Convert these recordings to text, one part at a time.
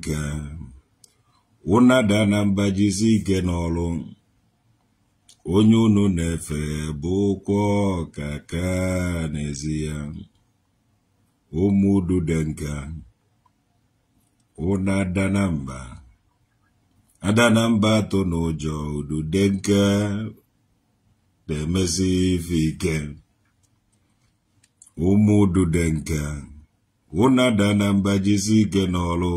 nke ụna na mba ike n'ọrụ onye unu na-efe bụ ụkwụ ọka ka n'ezi ya ụmụ dude nka ụna adana mba adana mba atụ n'ụjọ udude nka na-emezi ife ike ụmụ dude nka ụna adana mba jizi ike n'ọrụ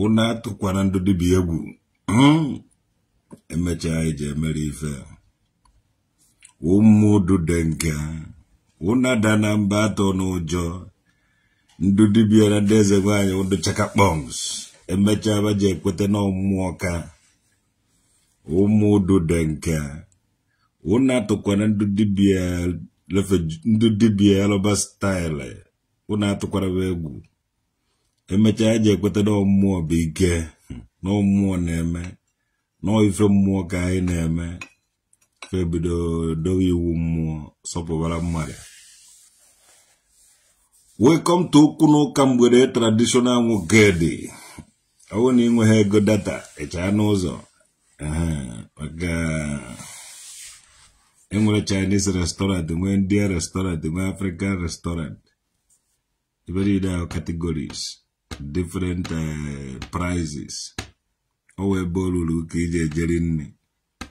unu atụkwana ndụ dibịa egwu hmm? emechaa anyị ji emere ife ụmụudu dị nke unu ada na mba atọ n'ụjọ ndụ dibịa na ndị eze nwaanyị ụdụ chaka kpọms emechaa baji ekweta na ọmụmụ ka ụmụudu dị nke unu atụkwana ndị dibịa ndị dibịa alọba staịlị unu atụkwara egwu emechaa eji ekweta na mmụọ bụ ike na mmụọ na-eme na ife mmụọ ka anyị na-eme ka ebido dowe iwu mmụọ sọpụbara mmadụ welcome to okwu n'ụka mgbede traditional nwogedi ọ bụrụ na ịnweghị ego data echaa n'ụzọ maka enwere chinese restaurant e nwee india restaurant e nwee african restaurant iberido categories different eh, prices o wee be olulu ka iji ejeri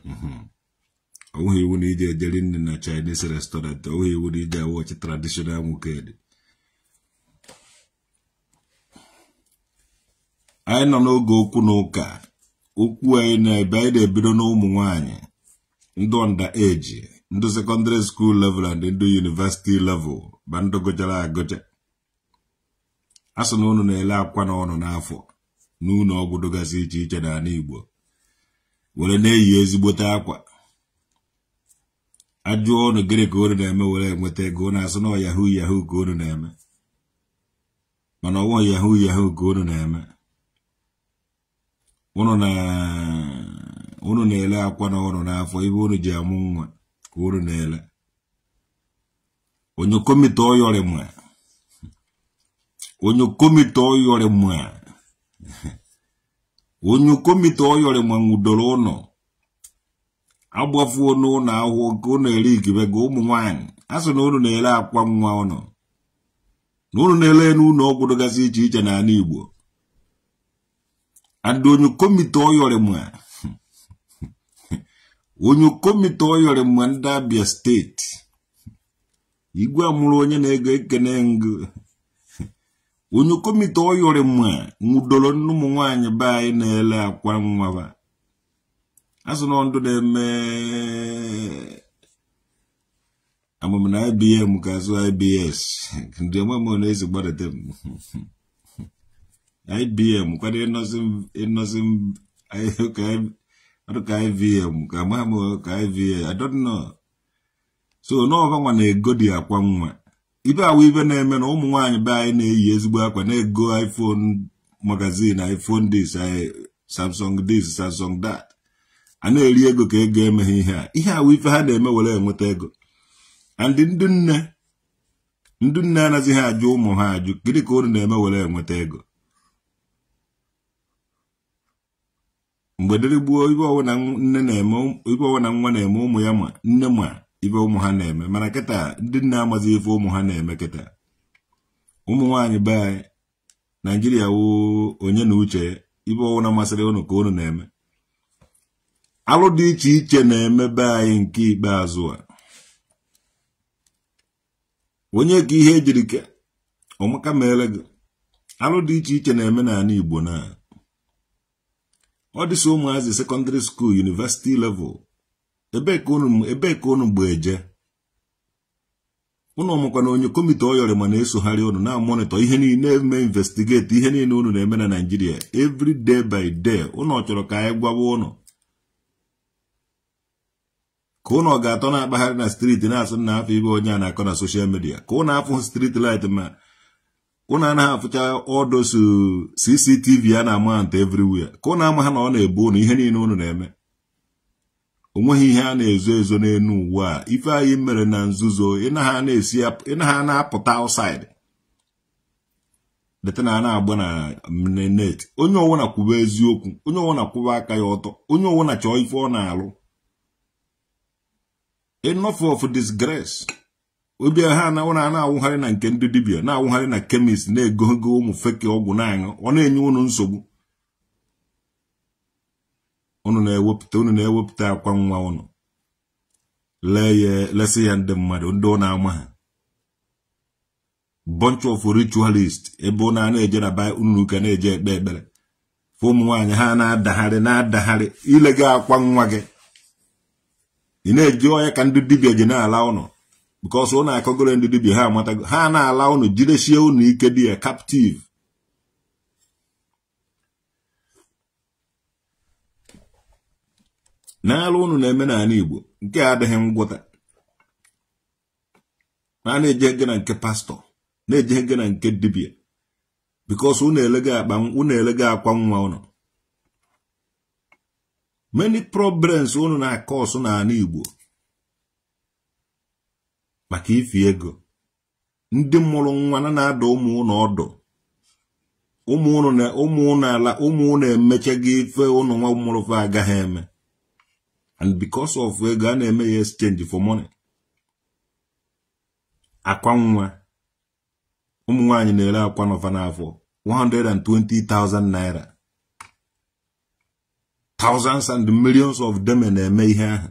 mhm. iwu na iji ejeri nri na chinese restaurant onweghị iwu na iji awochi traditional dị anyị nọ n'oge okwu na ụka okwu anyị na-ebe anyị na-ebido na ụmụ nwanyị ndị ọnda eji ndị sekọndịrị skuul level and ndị yunivesiti level ba ndị gụchara agụcha a sị na unu na-ele akwa na ọnụ n'afọ na ụlọ ọgwụ iche iche n'ala Igbo were na-eyi ezigbote akwa ajụọ ọnụ gịnị ka unu na-eme were nweta ego unu asị na ọ yahoo yahoo ka unu na-eme mana ọwụọ yahoo yahoo ka unu na-eme unu na-ele na akwa na ọnụ n'afọ ebe unu ji amụ nwa ka unu na-ele onye komite ọyọrịma onye komite oyore mwa onye komite oyore mwa ngudoro ono agbafuo n'ụlọ ahụhụ ka ụnụ eri igibe ga ụmụ nwanyị a sị na ụnụ na-ere akwa nwa ụnụ na ụnụ na-ele n'ụlọ ọgwụ dịgasị iche iche n'ala Igbo and onye komite oyore mwa onye komite oyore mwa ndị Abia steeti igwe amụrụ onye na-ego ekene ngụ onye komite oyori mma nwụdoro nne ụmụ nwanyị be anyị na-ele akwa nwa asụ na ndụ na-eme amam na IBM ka azụ IBS ndị amam na-ezi gbadata m IBM kwado ịnọzi ka IVM ka amam ka IVA I don't know so n'ọba nwa na-egodi akwa nwa ibe awụ ibe na-eme na ụmụ nwaanyị be anyị na-eyi ezigbo akwa na-ego iphone magazin iphone this samsung this samsung dat a na-eri ego ka ego emeghị ihe a ihe awụ ife ha na-eme were enweta ego and ndị nne ndị nne anazighị ajụ ụmụ ha ajụ gịnị ka unu na-eme were enweta ego mgbe dịrị gbuo ibe ọwụna nne na-eme ibe ọwụna nwa na-eme ụmụ ya ma nne ma ife ụmụ ha na-eme mana kịta ndị nna amazi ife ụmụ ha na-eme kịta ụmụ nwaanyị be anyị naijiria woo onye na uche ibe na masịrị ụnụ ka ụnụ na-eme alụ dị iche iche na-eme be anyị nke ikpeazụ a onye ka ihe ejiri ka ọmụka gị alụ dị iche iche na-eme n'ala igbo na ọ dịsị ụmụazị sekọndịrị skuul yunivesiti level ebee ka unu ebee ka unu mgbeje unu ọmụkwa na onye kọmiti ọyọrị ma na-esogharị ụnụ na-amonitọ ihe niile na-eme investigeti ihe niile unu na-eme na naijiria evri day by day unu chọrọ ka anyị gwawa ụnụ ka unu ga-atọ na-akpagharị na striti na-asụ na afọ ibe onye a na-akọ na soshal midia ka ụnụ afụ striti light ma ụnụ anaghị afụcha ọdọsu CCTV a na-ama ntọ everywhere ka ụnụ ama ha na ọ na-ebu ụnụ ihe niile unu na-eme o nweghị ihe a na-ezo ezo n'elu uwe a ife anyị mere na nzuzo ịnaha na-apụta outside detana na-agba na net onye ọwụna kwuba eziokwu onye ọwụna kwụba aka ya ọtọ onye ọwụna chọọ ife ọ na-alụ enough of disgrace obi ha na a na-awụgharị na nke ndị dibia na-awụgharị na kemist na-egogo ụmụ feke ọgwụ na-aṅụ ọ na-enye unu nsogbu unu na-ewepụta unu na-ewepụta akwa nwa unu lee ya lesị ya ndị mmadụ ndị na ama ha bunch of ritualist ebe ụnụ na-eje na baịbụl unu ka na-eje ekpe ekpere fụ ụmụ nwaanyị ha na-adagharị na-adagharị ile akwa nwa gị ị na-eji onye ka ndị dibia ji na-ala ụnụ ụ na akọgoro ndị dibia ha amatago ha na-ala ụnụ jidesie ụnụ ike di ya kaptiv. n'ala unu na-eme n'ala Igbo nke adịghị ngwụta na na-eje ege na nke pastọ na-eje ege na nke dibia because unu elego akwa nwa unu many problems unu na-akọ ọsụ n'ala Igbo maka ifi ego ndị mụrụ nwa na na-ada ụmụ ụnụ ọdụ ụmụ ụnụ ala ụmụ ụnụ emechaghị ife ụnụ nwa mụrụfe agaghị eme and because of ego a na-eme ya exchange for money akwa nwa ụmụ nwaanyị na-ere akwa n'ọfa n'afọ 120,000 naira thousands and millions of them na-eme ihe ahụ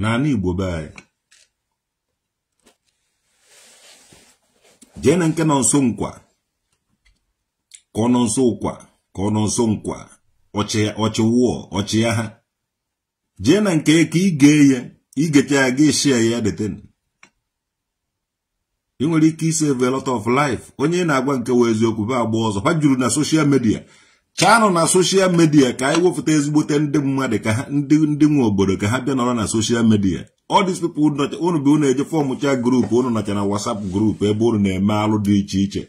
n'ala Igbo be anyị jee na nke nọ nso nkwa ka ọ nọ nso nkwa ka ọ nọ nso nkwa ọchịwụọ ọchịagha jee na nke ka ị gee ya igecha ya ga eshia ya deten ị nwere ike isave a lot of life onye na-agwa nke wee eziokwu be agba ọzọ ha juru na soshal midia chanụ na soshal midia ka anyị wepụta ezigbote ndị mmadụ ka ndị ndị nwe obodo ka ha bịa nọrọ na soshal midia all these people unu bụ unu eje fọm cha grupu unu nọcha na wasap grupu ebe unu na-eme alụ dị iche iche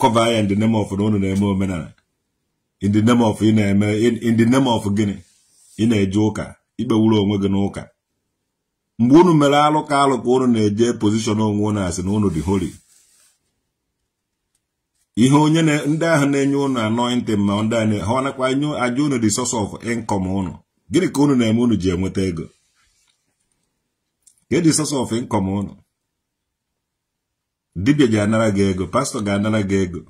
kọva ya ndị name na unu na-eme omenala in the name of ị na-eme in the name of gịnị ị na-eje ụka ikpewuru onwe gị n'ụka mgbe unu mere alụ ka alụ ka na-eje pozishọn onwe unu asị na unu dị holi ihe onye ndị ahụ na-enye unu anọịntị ma ndị a ha nakwa nye aja ụnụ dị source of income ụnụ gịnị ka ụnụ na-eme ụnụ ji enweta ego ka dị e source of income unu dibia ji anara gị ego pastọ ga-anara gị ego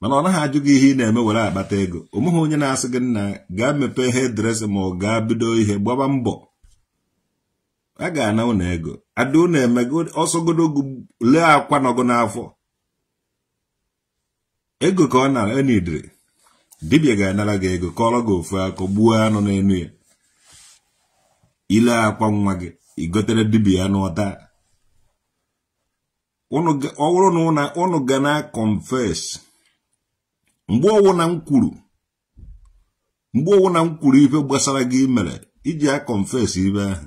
mana ọ naghị ajụ gị ihe ị na-eme were akpata ego omeghị onye na-asị gị nna gaa mepee hedres ma ọ gaa bido ihe gbaba mbọ a ga-ana ụnụ ego ada ụnụ emego ọsọgodogu lee akwa nọgụ n'afọ ego ka ọ nara enidiri dibia ga-anara gị ego kọrọ gị ofu akụ gbuo anụ n'enu ya ile akwa nwa gị igotere dibia anụ ọta ọ bụrụ na ụnụ ga na-akọnfes mgbe ọwụna m kwuru mgbe ọwụna m kwuru ife gbasara gị mere iji a confess ibe ahụ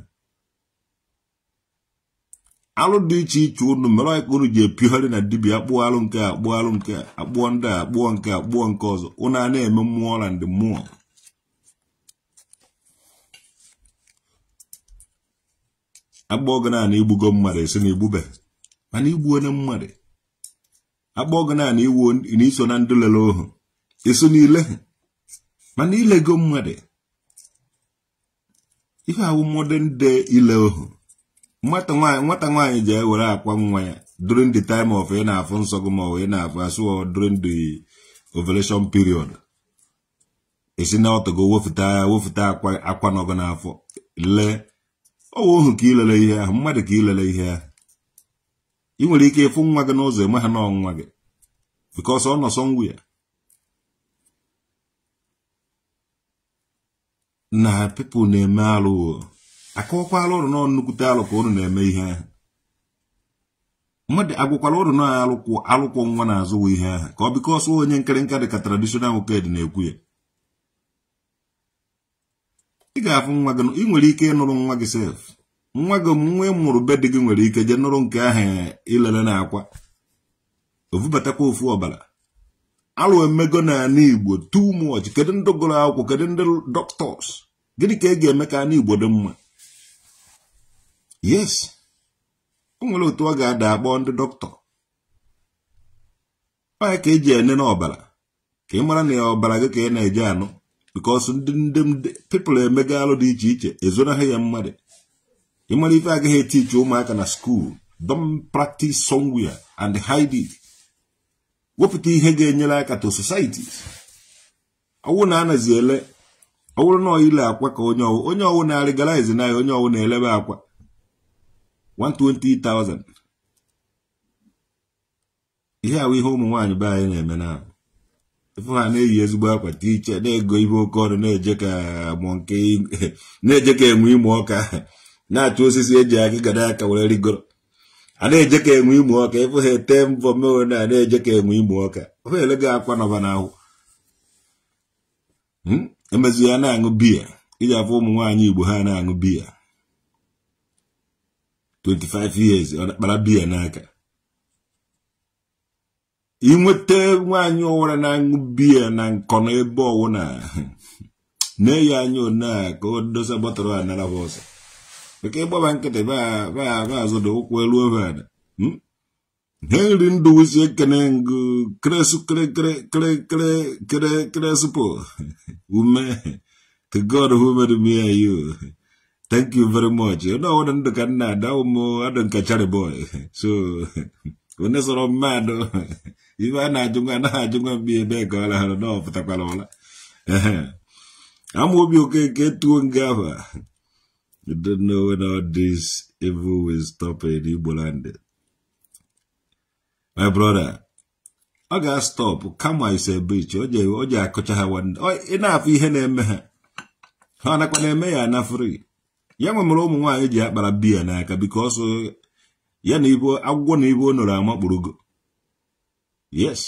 alụ dị iche iche unu mere ọka unu ji epigharị na dibia akpụọ alụ nke akpụọ alụ nke akpụọ ndị a akpụọ nke akpụọ nke ọzọ ụnụ a na-eme mmụọ na ndị mmụọ akpọọ gị naanị igbugo mmadụ esi na igbube mana igbu onye mmadụ akpọọ gị naanị iwu na iso na ndị lere ohu eso n'ile mana ilego mmadụ ihe awụmodern day ile ohu nwata nwaanyị ji ewere akwa nwa ya during the time of ị e na-afụ nsọ gị ma ọ ị e na-afụ asụ during the ovulation period esi na ọtọgo wefụta wefụta akwa n'ọgụ n'afọ lee ọwa ohu ka ilele ihe ahụ mmadụ ka ilele ihe ahụ ị nwere ike ịfụ nwa gị n'ụzọ eme ha na n'ọnwa gị because ọ nọ ya. na pepụl na-eme alụ akọwakwala ụrụ nọ nnukwute alụ ka ụrụ na-eme ihe ahụ mmadụ agwụkwala ụrụ na alụkwụ alụkwụ nwa na-azụwa ihe ahụ ka ọ biko ọsọ onye nkịrịnka dị ka tradishonal ked na-ekwu ya ị ga-afụ nwa gị ị nwere ike ịnụrụ nwa gị sef nwa gị nwa ịmụrụ be dị gị nwere ike jee nụrụ nke ahụ ilele na akwa ovubatakwa ofu ọbara alụ emego n'ala igbo too much kedu ndị gụrụ akwụkwọ kedu ndị doctors gịnị ka ị e ga-eme ka ala igbo dị mma yes o nwere otu ọ ga-ada akpọ ndị dọkịta onye ka eji enene ọbara ka ị mara na ya ọbara gị ka ị na-eje anụ bikos ndị ndị pipụl emega alụ dị iche iche ezonaghị ya mmadụ ị mara ife agaghị etichi ụmụaka na skuul don practice somewhere and hide wepụta ihe ga-enyere aka to societies ọwụ na anazi ele ọwụrụ na ile akwa ka onye ọwụ onye ọwụ na arịgara na ya onye ọwụ na-elebe akwa 120,000 ihe ahụ ihe ụmụ nwaanyị be anyị na-eme na ife ha na-eyi ezigbo akwa tiche na-ego ibe oke ọnụ na-eje ka enwe e ime ọka na-achụ osisi eji gada aka were rigoro a na-eje ka enwe ịmụ ọka ịfụ ha ete mbọ mewe na a na-eje ka enwe ịmụ ọka ofe gị akwa nọba n'ahụ hmm? emezie ya na-aṅụ biya iji afọ ụmụ nwaanyị igbo ha na-aṅụ biya 25 years kpara biya n'aka inweta nwaanyị ọwara na-aṅụ biya na na ebe ọwụ na na-eyi anya onea ka o dosa bọtụrụ a ke gbaba nkịtị baa azụda ụkwụ elu ovada henry hmm? ndụwụsi ekene ngụ kresu kresupo ume to god who made me you thank you very much onye ọwụda ndụ ka nna ada ụmụ adụ nke chariboy so onye sọrọ mmadụ ibe a na ajụnwa na anaghị ajụ mgbe ebe ka ọ lahara na ọ pụtakwara ụla ama obi okeke tuo nga ahụ You don't know when all this evil will stop in Igbo land. My brother, ọ ga-stop kama ise bich ọ ji akụcha ha ị na-afụ ihe na-eme ha ha nakwa na-eme ya na fri ya nwemere ụmụ nwaanyị ji akpara biya n'aka bikos uh, ya na ibo agwụgwọ na ibo nọrọ yes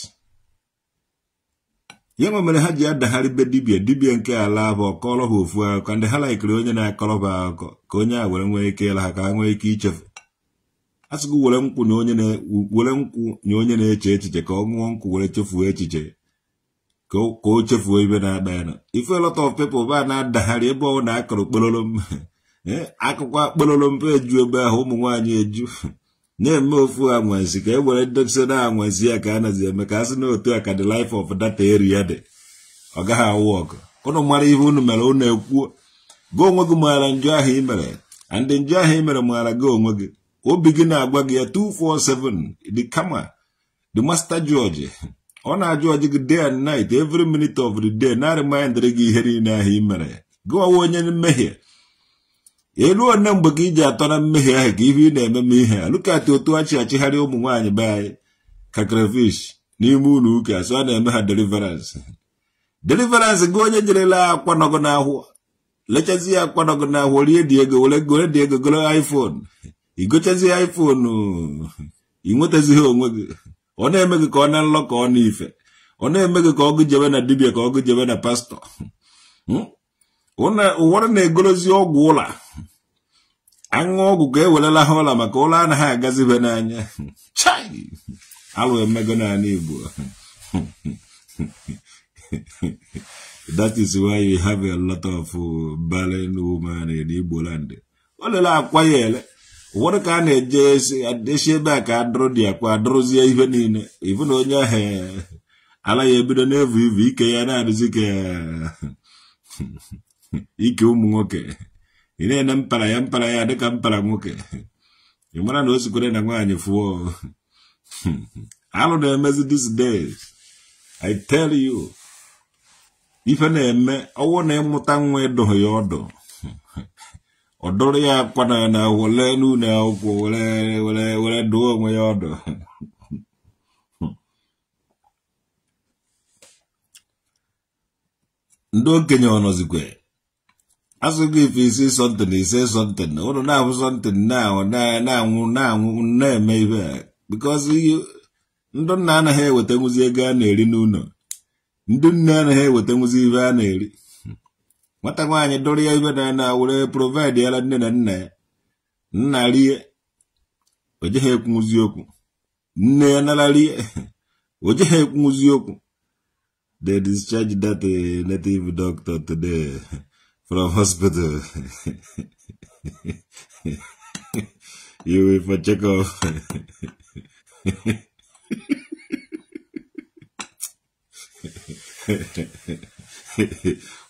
ihe mere ha ji adagharị be dibia dibia nke ala bụ kọrọ ha ofu akụkọ ndị ha laikiri onye na-akọrọ ha akụkọ ka onye a were nwee ike ịla ha ka ha nwee ike ichefu asịgo were nkwụ were nkwụ nye onye na-eche echiche ka ọ ṅụọ nkwụ were chefuo echiche ka o chefuo ibe na-agba ya na ife lot of people ba na-adagharị ebe ọ na-akọrọ kpololo eh, akụkọ akpololo mpe eju ebe ahụ ụmụ nwaanyị eju na-eme ofu anwansi ka e were ndozi na anwansi ya ka a nazi eme ka a sị na otu a ka the life of data area dị ọ gaghị awụ ọgụ ụnụ mara ihe unu mere unu ekwuo gị onwe gị maara njọ ahụ ị mere and njọ ahụ ị mere maara gị onwe gị obi gị na-agwa gị ya 247 the kama the master George ọ na-ajụ ọjị gị day and night every minute of the day na-arịmanyedịrị gị ihe niile ahụ ị mere gị ọwa onye mmehie eluo one mgbe ka iji atọ na mmehie ahụ ka ife ị na-eme m ihe a otu achị achịgharị ụmụ nwaanyị be anyị ka crayfish n'ime ụlọ ụka so na-eme ha deliverance deliverance gị onye jerela akwa nọgụ n'ahụ lechazi ya akwa nọgụ n'ahụ rie dị ego were gore dị ego goro iphone igochazi iphone inwetazighị onwe gị ọ na-eme gị ka ọ na nlọ ka ọ na ife ọ na-eme gị ka ọgụ jebe na dibia ka ọgụ jebe na pastọ hmm? ụwara na-egolozi ọgwụ ụla aṅụ ọgwụ ka ewerela ha ụla maka ụlọ anaghị agazibe n'anya chai alụ emego n'ala Igbo that is why you have a lot of uh, barren women in Igbo land o lele akwa ya ele ụfọdụ ka a na-eje esi ebe a ka adụrụ dị akwa adụrụzie ihe niile ibu na onye ahụ ala ya ebido na-evu ivu ike ya na-adụzi ka ike ụmụ nwoke ị na-ene mpara ya mpara ya dịka mpara nwoke ị mara na o zikwere na nwaanyị fụọ alụ na-emezi dis days i tell you ife na-eme ọwụ na ịmụta nwa ịdụghị ya ọdụ ọ ya akwana na wele n'ụlọ akwụkwọ were were were dụọ onwe ya ọdụ ndị okenye ọ nọzikwe asụgo ife isi sọntịn ise sọntịn ụlọ na-abụ sọntịn na-anwụ na-anwụ na-eme ibe a bikọzi ndị nna anaghị eweta nwụzi ego a na-eri n'ụlọ ndị nne anaghị eweta nwụzi ibe a na-eri nwata nwaanyị dụrụ ya ibe na na were yara nne na nna ya nna rie o jeghị ekwunwụzi okwu nne ya nara rie o jeghị ekwunwụzi okwu the discharge that eh, native doctor today From hospital. you with my checkup.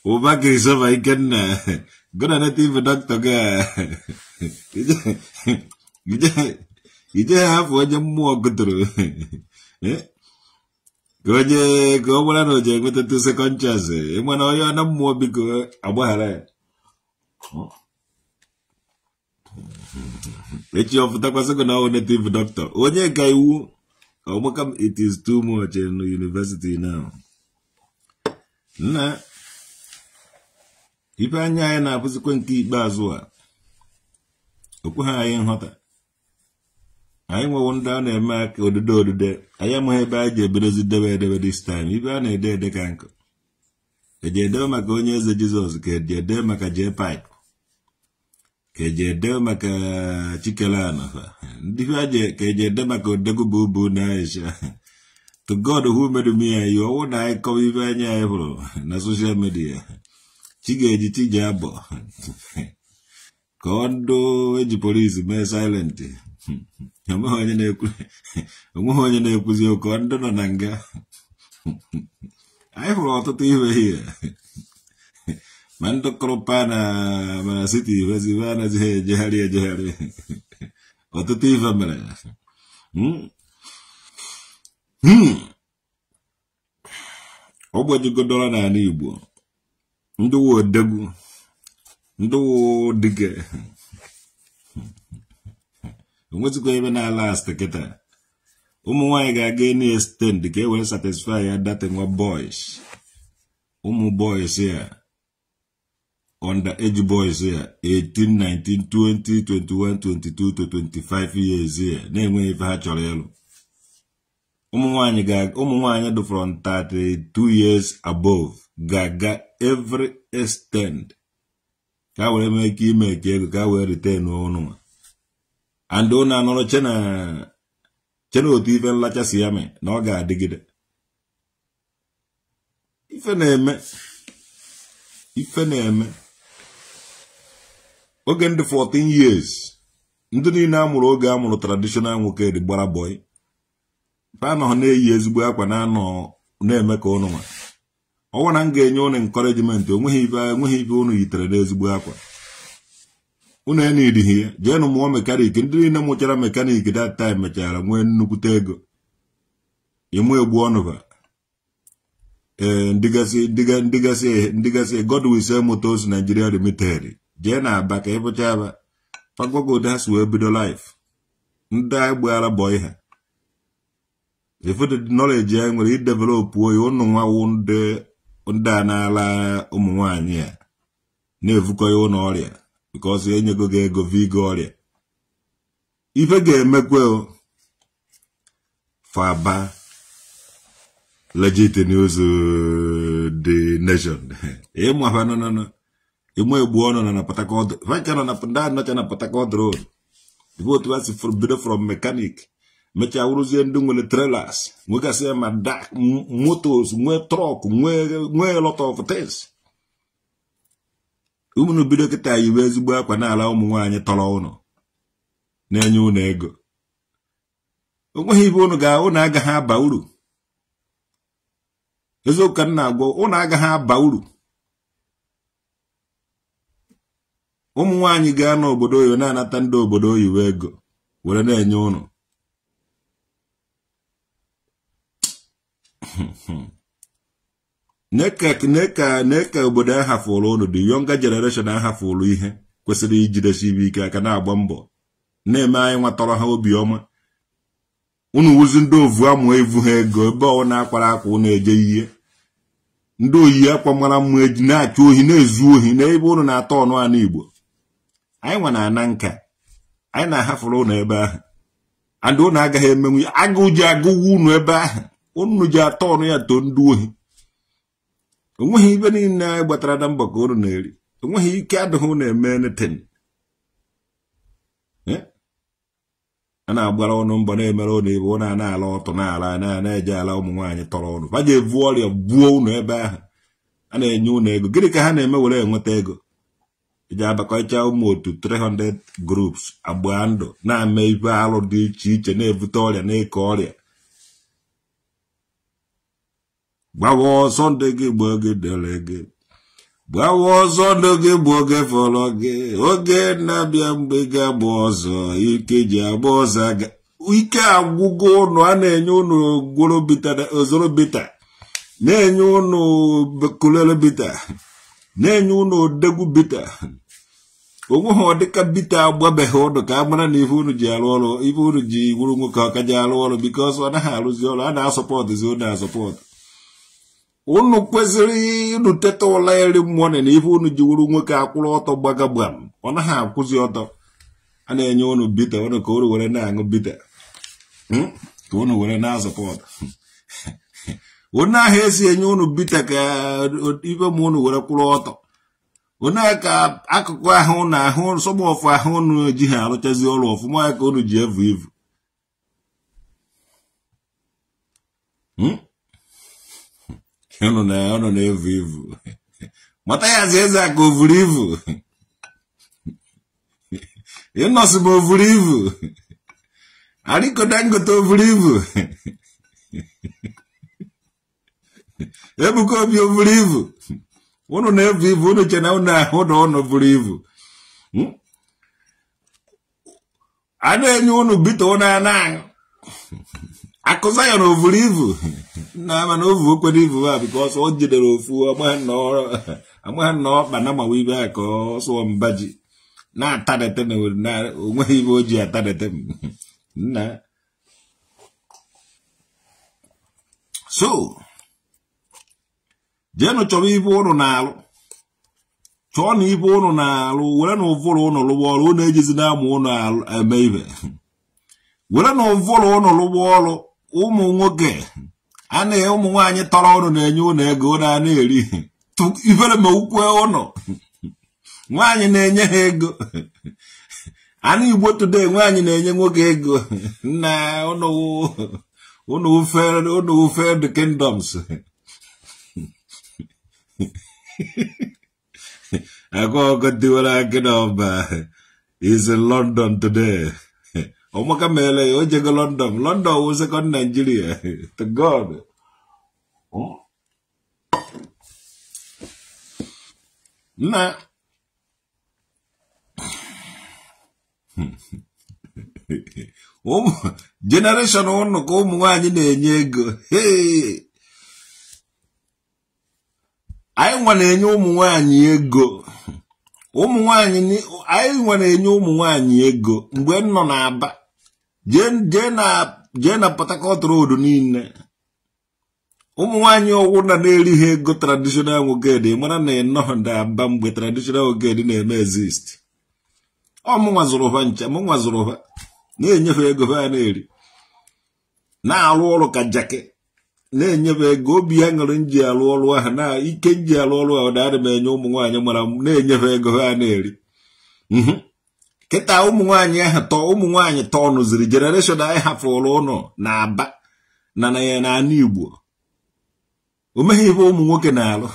Ubaki is over again. Good on it, even doctor. You just have one more good through. Eh? ka onye ka ọ gwara na o ji enweta tu sekọnd chansị na onye na mmụọ biko agbaghara ya echi ọpụtakwasịgo na ọ native doctor onye ka iwu ọgbaka it is too much in university na nna ife anya anyị na-abụzikwa nke ikpeazụ a okwe ha anyị nghọta anyị nwewo ndị a na-eme aka odide odide anyị amaghị ebe anyị ji ebedozi debe edebe dis time ibe a na-ede ede ka nkụ eji edebe maka onye eze jizọs ka eji maka jee paịpụ ka eji edebe maka e chikelana ndị ka eji ede maka odegụba ubu na aisha to god who made me anyị ọnwụ na anyị kọwa ibe anya anyị hụrụ na soshal midia chi ga-eji chi ji abọ ka ọ ndụ eji polisi mee silenti amaghị onye na-ekwuzi onweghị onye na-ekwuzi ụkọ ndị nọ na nga anyị hụrụ ọtụtụ ihe hie ma ndị kụrụpa na mana siti ivezive anazighị ejegharị ejegharị ọtụtụ ife mere ogbejigodoro n'ala Igbo ndị wodegwu ndị dige. onwezikwa ebe na-ala ast kịta ụmụ nwaanyị ga-aga enu estend ka e wee satisfy ya data nwa boys ụmụ boys ya under age boys ya 18 19 20 21 22 25 years ya na-enweghị ife ha chọrọ ịlụ ụmụ nwaanyị ga ụmụ from 32 years above ga-aga every estend ka were mee ike ime ka ego ka were retain ụnụ andụ na-anọrọ chena otu ife nlacha si ya mee na ọ ga-adịgide ife na-eme ife na-eme oge ndị 14 years ndị niile a mụrụ oge a mụrụ traditional nwoke dị gbara boy anọ na-eyi ezigbo akwa na-anọ na-eme ka ụnụ nwa ọnwa na m ga-enye ụnụ encouragement onweghị ife onweghị ife yitere n'ezigbo akwa unu enidihi ya jeenụ mụọ mekaniki ndị niile mụchara mekaniki dat taim mechara nwee nnukwute ego ịmụ egbu ọnụba ee ndịgasị Godwin Motors naijiria Limited jee na aba ka ịpụcha aba pagogodo ha si wee bido lif ndị agbaala bọị ha ifụdịdị nọleji anyị nwere idevelopụ oyi ụnụ nwawu ndị a na-ala ụmụ nwanyị a na-evukọ ya ụlọ ọrịa because. ga ego vigo ọrịa ife ga-emekwe faba legit news the nation nọ ịmụ egbu ọnụ na na na otu ha si bido from mekanik mecha wụrụzie ndị nwere nwegasị ma motos nwee trọk nwee lot of unu bido kịta yiwe ezigbo akwa n'ala ụmụ nwaanyị tọrọ ụnụ na-enye ụnụ ego onweghị ibe ụnụ ga ụnụ agaghị aba uru eziokwu ka m na-agwa ụnụ agaghị aba uru ụmụ nwaanyị gaa n'obodo oyibo na-anata ndị obodo oyiwe ego were na-enye ụnụ neka obodo ahafụrụ ụnụ dị yonga generation ahafụrụ ihe kwesịrị ijidesi ike aka na-agba mbọ na-eme anyị nwatọrọ ha obiọma ụnụ wuzi ndị ovu amụ evu ha ego ebe ọ na-akwara akwa ụnụ eje ihe ndị oyi akwa mara mma eji na-achụ ohi na-ezu ohi n'ebe ụnụ na-atọ ọnụ anụ Igbo anyị nwa na-ana nka anyị na-ahafụrụ ụnụ ebe ahụ andị ụnụ agaghị emenwu ya agụụ ji agụwa ụnụ ebe ahụ ụnụ ji atọ ọnụ ya too ndị ohi onweghị ibe niile anyị gbatara na mgbakọ unu na-eri onweghị ike adịghị unu eme netin eh? a na-agbara ọnụ mbọ na-emere ụnụ ibe ụnụ a na-ala ọtụ na-ala na-eje ala ụmụ nwaanyị tọrọ ụnụ baje evu ọrịa gbuo ụnụ ebe ahụ a na-enye ụnụ ego gịnị ka ha na-eme were enweta ego eji abakọcha ụmụ otu 300 groups agba ndụ na-ame ibe alụ dị iche iche na-ebute ọrịa na-eke ọrịa gbawa sọnde gị gba oge dere gị gbawa sọnde gị gba oge fọrọ gị oge na-abịa mgbe ga-agba ọzọ ike ji agba ọzọ aga ike agwụgo ụnụ a na-enye ụnụ bita na-enye ụnụ bita na-enye ụnụ odegwu bita ha ọdịka bita agbabeghị ụnụ ka a mara na ife unu ji arụ ọrụ ife unu ji wuru nwoke ọka ji arụ ọrụ bikọs ọ naghị arụzi ọrụ a na-asọpọtụzi ụnụ asọpọtụ unu kwesịrị unu teta ụla iri mmụọ na ife unu jiwuru nwoke akwụrụ ọtọ gbaga gbam ọ naghị akwụzi ọtọ a na-enye unu bita unu ka unu were na-aṅụ bita hmm? ka unu were na-azụpọt onye ahụ esi enye unu bita ka ife ma unu were kwụrụ ọtọ onye ka akụkụ ahụ na ahụ nsọgbọfụ ahụ unu ha arụchazi ọrụ ọfụma ya ka unu ji evu ivu hmm? Eu não, né? não, não leio vivo. Bota aí às vezes a govrivo. É eu não sou govrivo. Ali que eu tenho tô vivo. Eu não como vivo. Eu não leio vivo, eu não tinha não, eu não, eu não vivo. Hum? Ada yang nyuruh bitu na nang. akụza ya na ovuru ivu nna ama na mana ovu okwere ivu ha biko ọsọ o jidere ofu amagha na ọkpa na mawa ibe ya ka ọ sụọ mba ji na-atadete na onweghị ibe o ji atadete nna so jeenụ chọrọ ibe ụnụ na-alụ chọọ na ibe ụnụ na-alụ were na ụvụrụ ụnụ lụwa ọrụ ụnụ ejizi na-amụ ụnụ eme ibe were na ụvụrụ ụnụ lụwa ọrụ ụmụ nwoke a anaghị ụmụ nwaanyị tọrọ ụnụ na-enye ụnụ ego ụnụ a na-eri ifere ma ukwe ụnụ nwaanyị na-enye ha ego anụ igbo today nwaanyị na-enye nwoke ego na ụnụ ufe the kingdoms agwaọgọ dịwara gị n'ọba is in London today ọmaka meele ya o jego london london wụ sekọnd naijiria to god nna ụmụ jenereshọn ụnụ ka ụmụ nwanyị na-enye ego anyị nwa na-enye ụmụ nwanyị ego ụmụ nwanyị anyị nwa na-enye ụmụ nwanyị ego mgbe m nọ n'aba jee na Port Harcourt road niile ụmụ nwaanyị ọgwụ na na ego traditional woged mara na ịnọọ nda aba mgbe traditional woged na-eme exist ọmụnwa zụrụ ha nche mụnwa ha na-enyefe ego ha na na-arụ ọrụ ka jake na-enyefe ego obi ya nji arụ ọrụ ahụ na ike nji arụ ọrụ ahụ na-adị m enye ụmụ nwaanyị mara na-enyefe ego ha na-eri mhm. kịta ụmụ nwaanyị ahụ tọọ ụmụ nwaanyị tọọ nụziri jenereshọn anyị hafụrụ ụnọ na aba na n'ala igbo o meghị ebe ụmụ nwoke na-alụ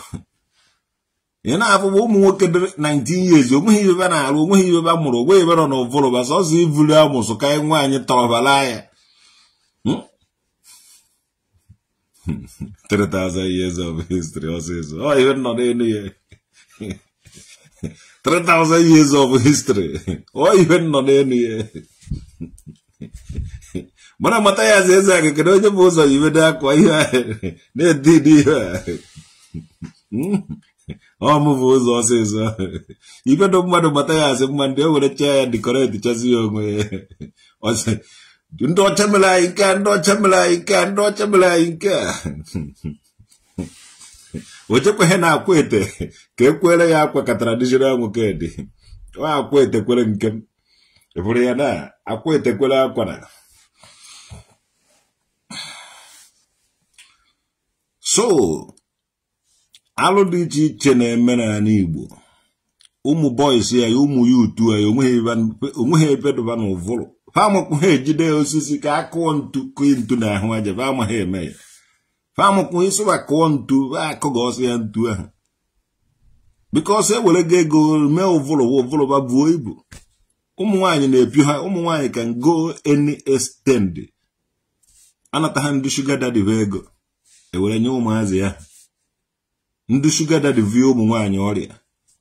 ị na-afụba ụmụ nwoke dị 19 years onweghị ibe na-alụ onweghị ibe a mụrụ onweghị ebe nọ na ụvụrụba sọsọ ivuru amụsụ ka nwaanyị tọrọbara ya 3000 hmm? years of history ọsịsọ ọ ihe nọ n'elu ya 3,000 years of history or even nọ n'elu ya mana mata ya eze aga kedu onye bụ ụzọ yibedo akwa ihe na-edidi ihe ọmụbụ ụzọ mmadụ mata ya asị mma were ya dịkọreti ya ndị ọcha mere anyị ndị ọcha mere anyị nke ndị ọcha mere ochekweghị na akwa ete ka e kwere ya akwa ka traditional nwoke nwa akwa etekwere nke m bụrụ ya na akwa etekwere akwa na so alụ dị iche iche na-eme n'ala Igbo ụmụ bọyis ya ụmụ ya utu ya onweghị ebedoba n'ụvụrụ ha amakwụghị ejide osisi ka akụọ ntu ntu na ahụ aja ba ha eme ya amụkwụ ịsụba kụọ ntu akụghị ọsọ ya ntu ahụ biko ọsọ ewere go ego mee ụvụlụwa ụvụlụba buo ibu ụmụ nwaanyị na-epi ha ụmụ nwaanyị ka go any extend anata ha ndị shuga va ego ewere nye ụmụazị ya ndị shuga dadive um ụmụ nwaanyị ọrịa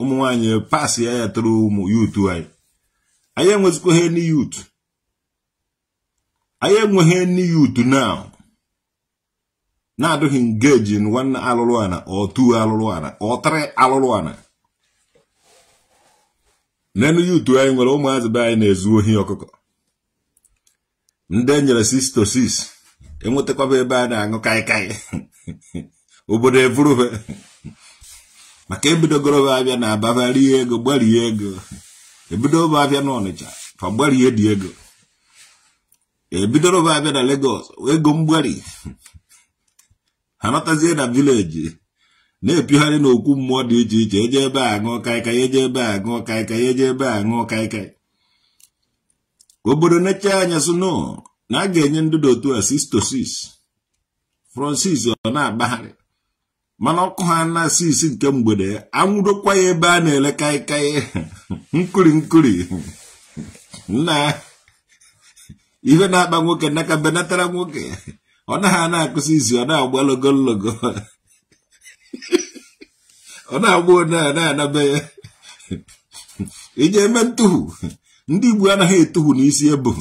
ụmụ um nwaanyị pas ya ya tụrụ ụmụ yutu anyị anyị enwezikwa ha ni yutu anyị enweghị ni yutu naụ. na-adịghị ngeji nwanne alụrụ ana otu alụrụ ana ọtịrị alụrụ ana n'elu yutu anyị nwere ụmụazị be anyị na-ezu ohi ọkụkọ ndị enyere 6 to 6 enwetakwaba ebe a na-aṅụ kaikai obodo eburube maka ebidogoroba abịa na ababarie ego gbarie ego ebidoba abịa n'ọnịcha fa gbarie dị ego ebidoroba abịa na Lagos ego mgbari ha na vileji na-epigharị n'okwu mmụọ dị iche iche eje ebe a ṅụọ kaikai eje ebe a ṅụọ kaikai eje ebe a ṅụọ kaikai obodo na anya suno na a ga-enye ndị dị otu a sis francis ọ na-agbagharị mana ọkụ ha na sis nke mgbede anwụdokwa ya ebe a na-ele kaikai nkuri nkuri na ihe na-akpa nwoke nnaka benatara nwoke ọ naghị na-akụzi izu ọ na-agba logologo ọ na-agba onye a na-anabe ya ịnye eme ntuhu ndị igbo anaghị etuhu n'isi ebu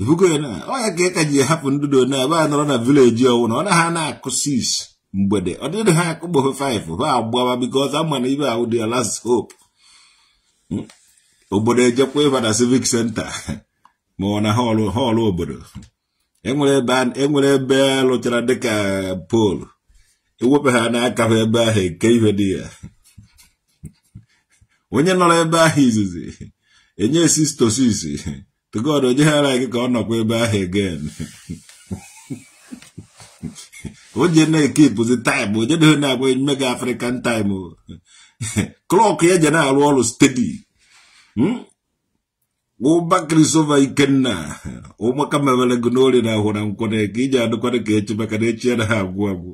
ebugo ya na ọ ya ka ị e ji hapụ ndụdo na ebe a nọrọ na vileji ọwụ na ọ naghị na-akụsi isi mgbede ọ dịrị ha akụgbofe 5 ha agbawa bikọz ama na ibe ahụ dị ya last hope obodo ejekwa ịba na civic senta ma ọ na họlụ obodo enwere ebe enwere lụchara dịka pol ewepụ ha na ha ebe ahụ eke ihe dị ya onye nọrọ ebe ahụ izizi enye sistosis tugod ara gị ka ọ nọkwa ebe ahụ egen oje na-ekipụzi taịm onye na na-agba emume gị afrịkan taịm klọk ya je na-arụ ọrụ stedi hmm? ụbakịrịso ma ikenna ụmụaka mewere gị n'orie na ahụ na nkwọ na eke iji adụkwara ka echi maka na echi anaghị agwụ agwụ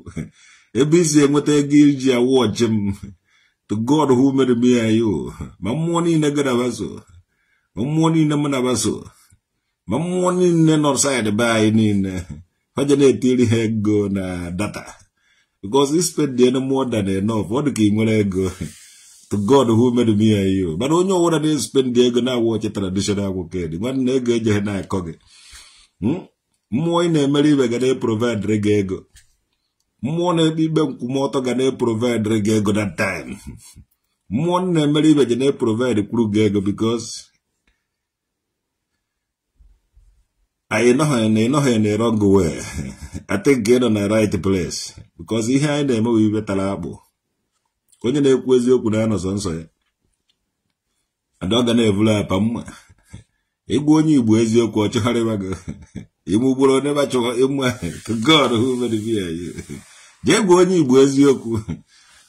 ebe isi enweta ego iji awụ m to God who made me ayo ma mmụọ niile gị na ma mmụọ niile m na-abaso ma mmụọ niile nọ saịdị be anyị niile faje na-etiri ha ego na data because spend more than enough ọ dị ka ị nwere ego to God who made me and you. But when you want to spend the ego now watch a traditional worker, the one nega jehna koge. Mmụọ na-emere ibe ga na-eprovidere gị ego. Mmụọ na-ekpe ikpe nkwụmọtọ ga na-eprovidere gị ego that time. Mmụọ na-emere ibe ga na-eprovide kwuru gị ego because anyị nọghị na ịnọghị na wrong way. I think get on na right place because ihe anyị na-eme bụ ibe tara onye na-ekwu eziokwu na ya nọsọ nsọ ya adọga na-eburu apa mma ịgwa onye igbo eziokwu ọchọgharịwa gị ịmụgboro neba chọrọ ịma god who made me jee gwa onye igbo eziokwu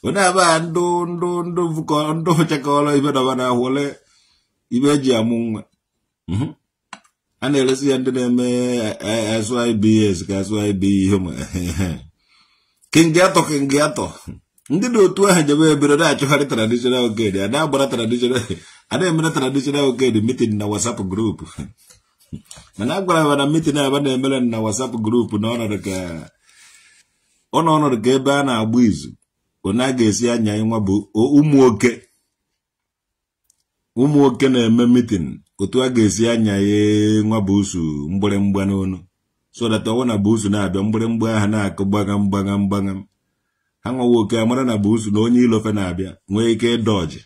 onye aba ndụ ndụ ndụ vụkọ ndụ chekọrọ ibe dọba na ahụle ibe eji amụ nwa mhm. a na-eresi ya ndị na-eme asụ ibe e, ka asụ ibe ihe ma kingatọ atọ. ndị dị otu ahụ jebe ebere na-achụgharị traditional ged a na-agbara traditional a na-emere traditional ged mitin na WhatsApp grupu mana a gwara na mitin aba na-emere na WhatsApp grupu na ọ nọnọdụ ka ebe a na-agba izu onye a ga-esi anya nwa bụ ụmụoke ụmụoke na-eme mitin otu a ga-esi anya ya nwa busu mgbịrịmgba n'ọnụ so that ọnwụ na busu na-abịa mgbịrịmgba ahụ na-akụ gbagam gbagam gbagam anwawo oke amara na bụ na onye ilofe na-abịa nwee ike dọji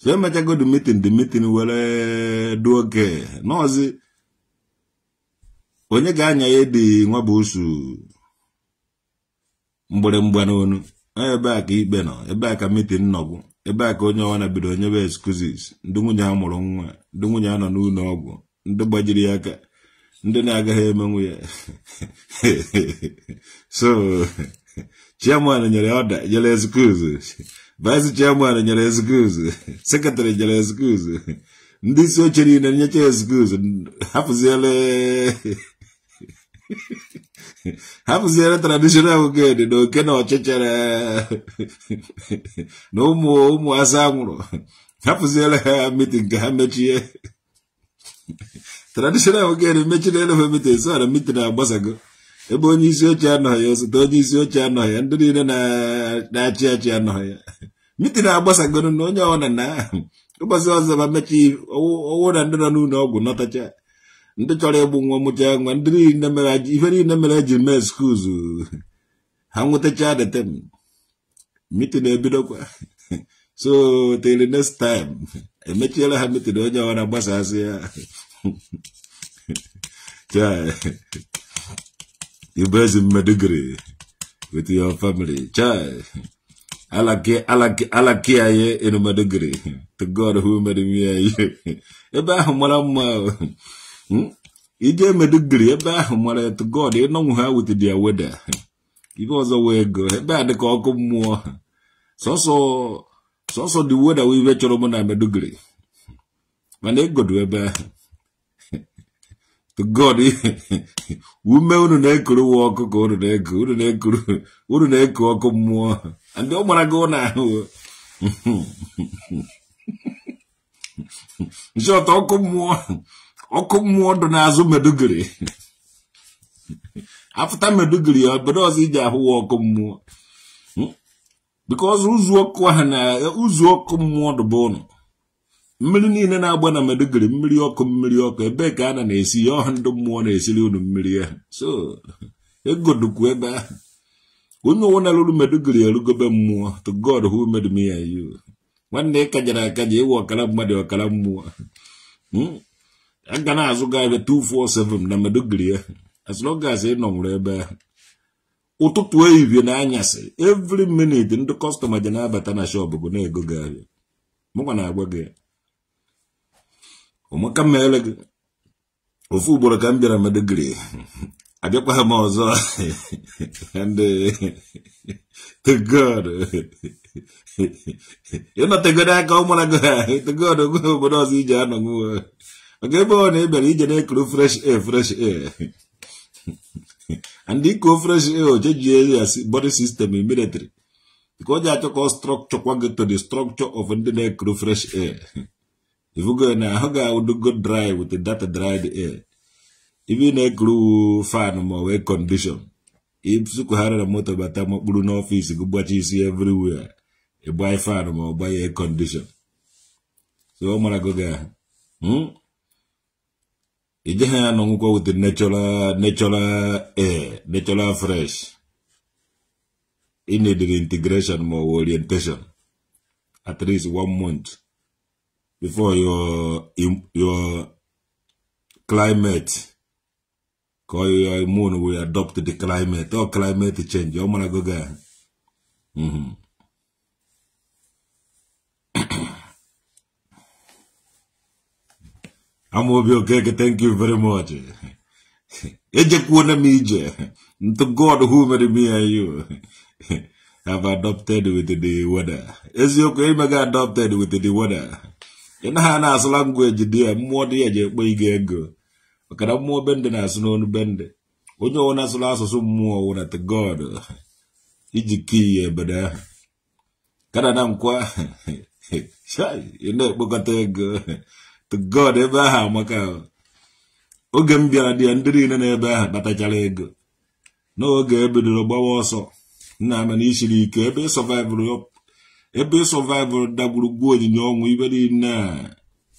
so emechago the meeting the meeting were du oge n'ọzi onye ga-anya ya dị nwa bụ mgbịrịmgba n'onu ebe a ka ikpe nọ ebe a ka metin nọgwụ ebe a ka onye ọwa na bido nyebe excuses ndị nwunye a mụrụ nwa ndị nwunye a nọ n'ụlọ ọgwụ ndị gbajiri ya aka ndị na-agaghị emenwu ya so chairman nyere ọda nyere ezikuzu vice chairman nyere ezikuzu sekretari nyere ezikuzu ndị isi oche niile nyecha ezikuzu hapụziele hapụziere traditional ged na oke na ọchịchịrị na ụmụ ụmụ asa nwụrụ hapụziere ha mitin ka ha mechie traditional ged mechiri elefe mitin so na mitin agbasago ebe onye isi oche anọghị osote onye isi oche anọghị ndị niile na-achị achị anọghị ya mitin agbasagoro na onye ọbụla na ụbọchị ọzọ ma mechaa ọwụ na ndị nọ n'ụlọ ọgwụ nọtacha ndị chọrọ ịgbụ nwa mụcha nwa ndị niile mere ife niile mere eji mee skuuzu ha nwetacha detem mitin ebidokwa so till next time emechiela ha mitin onye ọbụla gbasasị ya ịbụ ezi mmadụ gịrị your family chai alaki anyị ịnụ mmadụ to god who made me anyị ebe ahụ mara mma ije hmm? ịdị gịrị ebe ahụ mara to god ịnọnwụ ha with their weather ibe ọzọ wee go ebe a dịka ọkụ mmụọ sọsọ sọsọ the weather chọrọ mụ na mana ịgodo e ebe God ume unu na-ekuru nwa ọkụ ka unu na-eku unu na-ekuru unu na-eku ọkụ mmụọ ndị ọ gbara gị ụlọ ahụ nchi ọtọ ọkụ talk more mmụọ dị n'azụ medugiri afụta medugiri obodo ọzọ iji ahụ nwa walk more. because who's walk one? Who's walk more the bone? mmiri niile na-agba na meduguri mmiri ọkụ mmiri ọkụ ebee ka a na na-esi ya ọha ndị mmụọ na-esiri unu mmiri ya e. so egodukwu ebe ahụ onye ụwa na-alụrụ meduguri erugobe mmụọ to god who made me and you nwanne ị kajara akaja ịwa ọkara mmadụ ọkara mmụọ hmm? aga na-azụ gị abịa 247 na meduguri ya e. as long nọ ị ebe ahụ ụtụtụ ehihie na anyasị every minute ndị kọstọma ji na-abata na shọp bụ na-ego gị abịa mụkwa na-agwa gị ụmụka m meere gị ofu ugboro ka m bịara madogiri abịakwaghị m ọzọ togod aka ụmụra gị togod gwe obodo ọzọ ije anọ gị maka ebe ọ na ị bịara ije na-ekuru fresh air fresh air and ikuo fresh air ojejie ya body system military ka o ji achọ ka kwa strọkchọkwa gị to the structure of ndị na-ekuru fresh air If you go how can I do go dry with the data dried air If you need glue fan more air condition if you isukwughara na moto bata mkpụrụ n'ọfịs gị gbachi see everywhere buy fan ma ọ gbaghị air condition so going. mara go gị ahụ ijeghị ya n'ọnwụkwọ with the natural natural air natural fresh inediri integration more orientation at least one month before your your climate call your immune we adopt the climate or oh, climate change mm-hmm. I'm go to mm -hmm. I'm gonna be okay thank you very much eje kuona mije to god who made me and you have adopted with the weather. is your okay adopted with the weather? ị na ha na-asụ langweji dị ya mmụọ dị ya ji ekpe ige ego maka na mmụọ bendị na-asụ n'onu bendị onye ọwụ na-asụrụ asụsụ mmụọ wụna t god iji kiyi ebede ahụ kana na nkwa ị na-ekpokọta ego tgod god ebe ahụ amaka oge m bịara dị ya ndị niile na-ebe ahụ kpatachara ego n'oge ebidoro gbawa ọsọ nna ama na isiri ike ebe ị ebe survival dagburugwu onyinye ọnwụ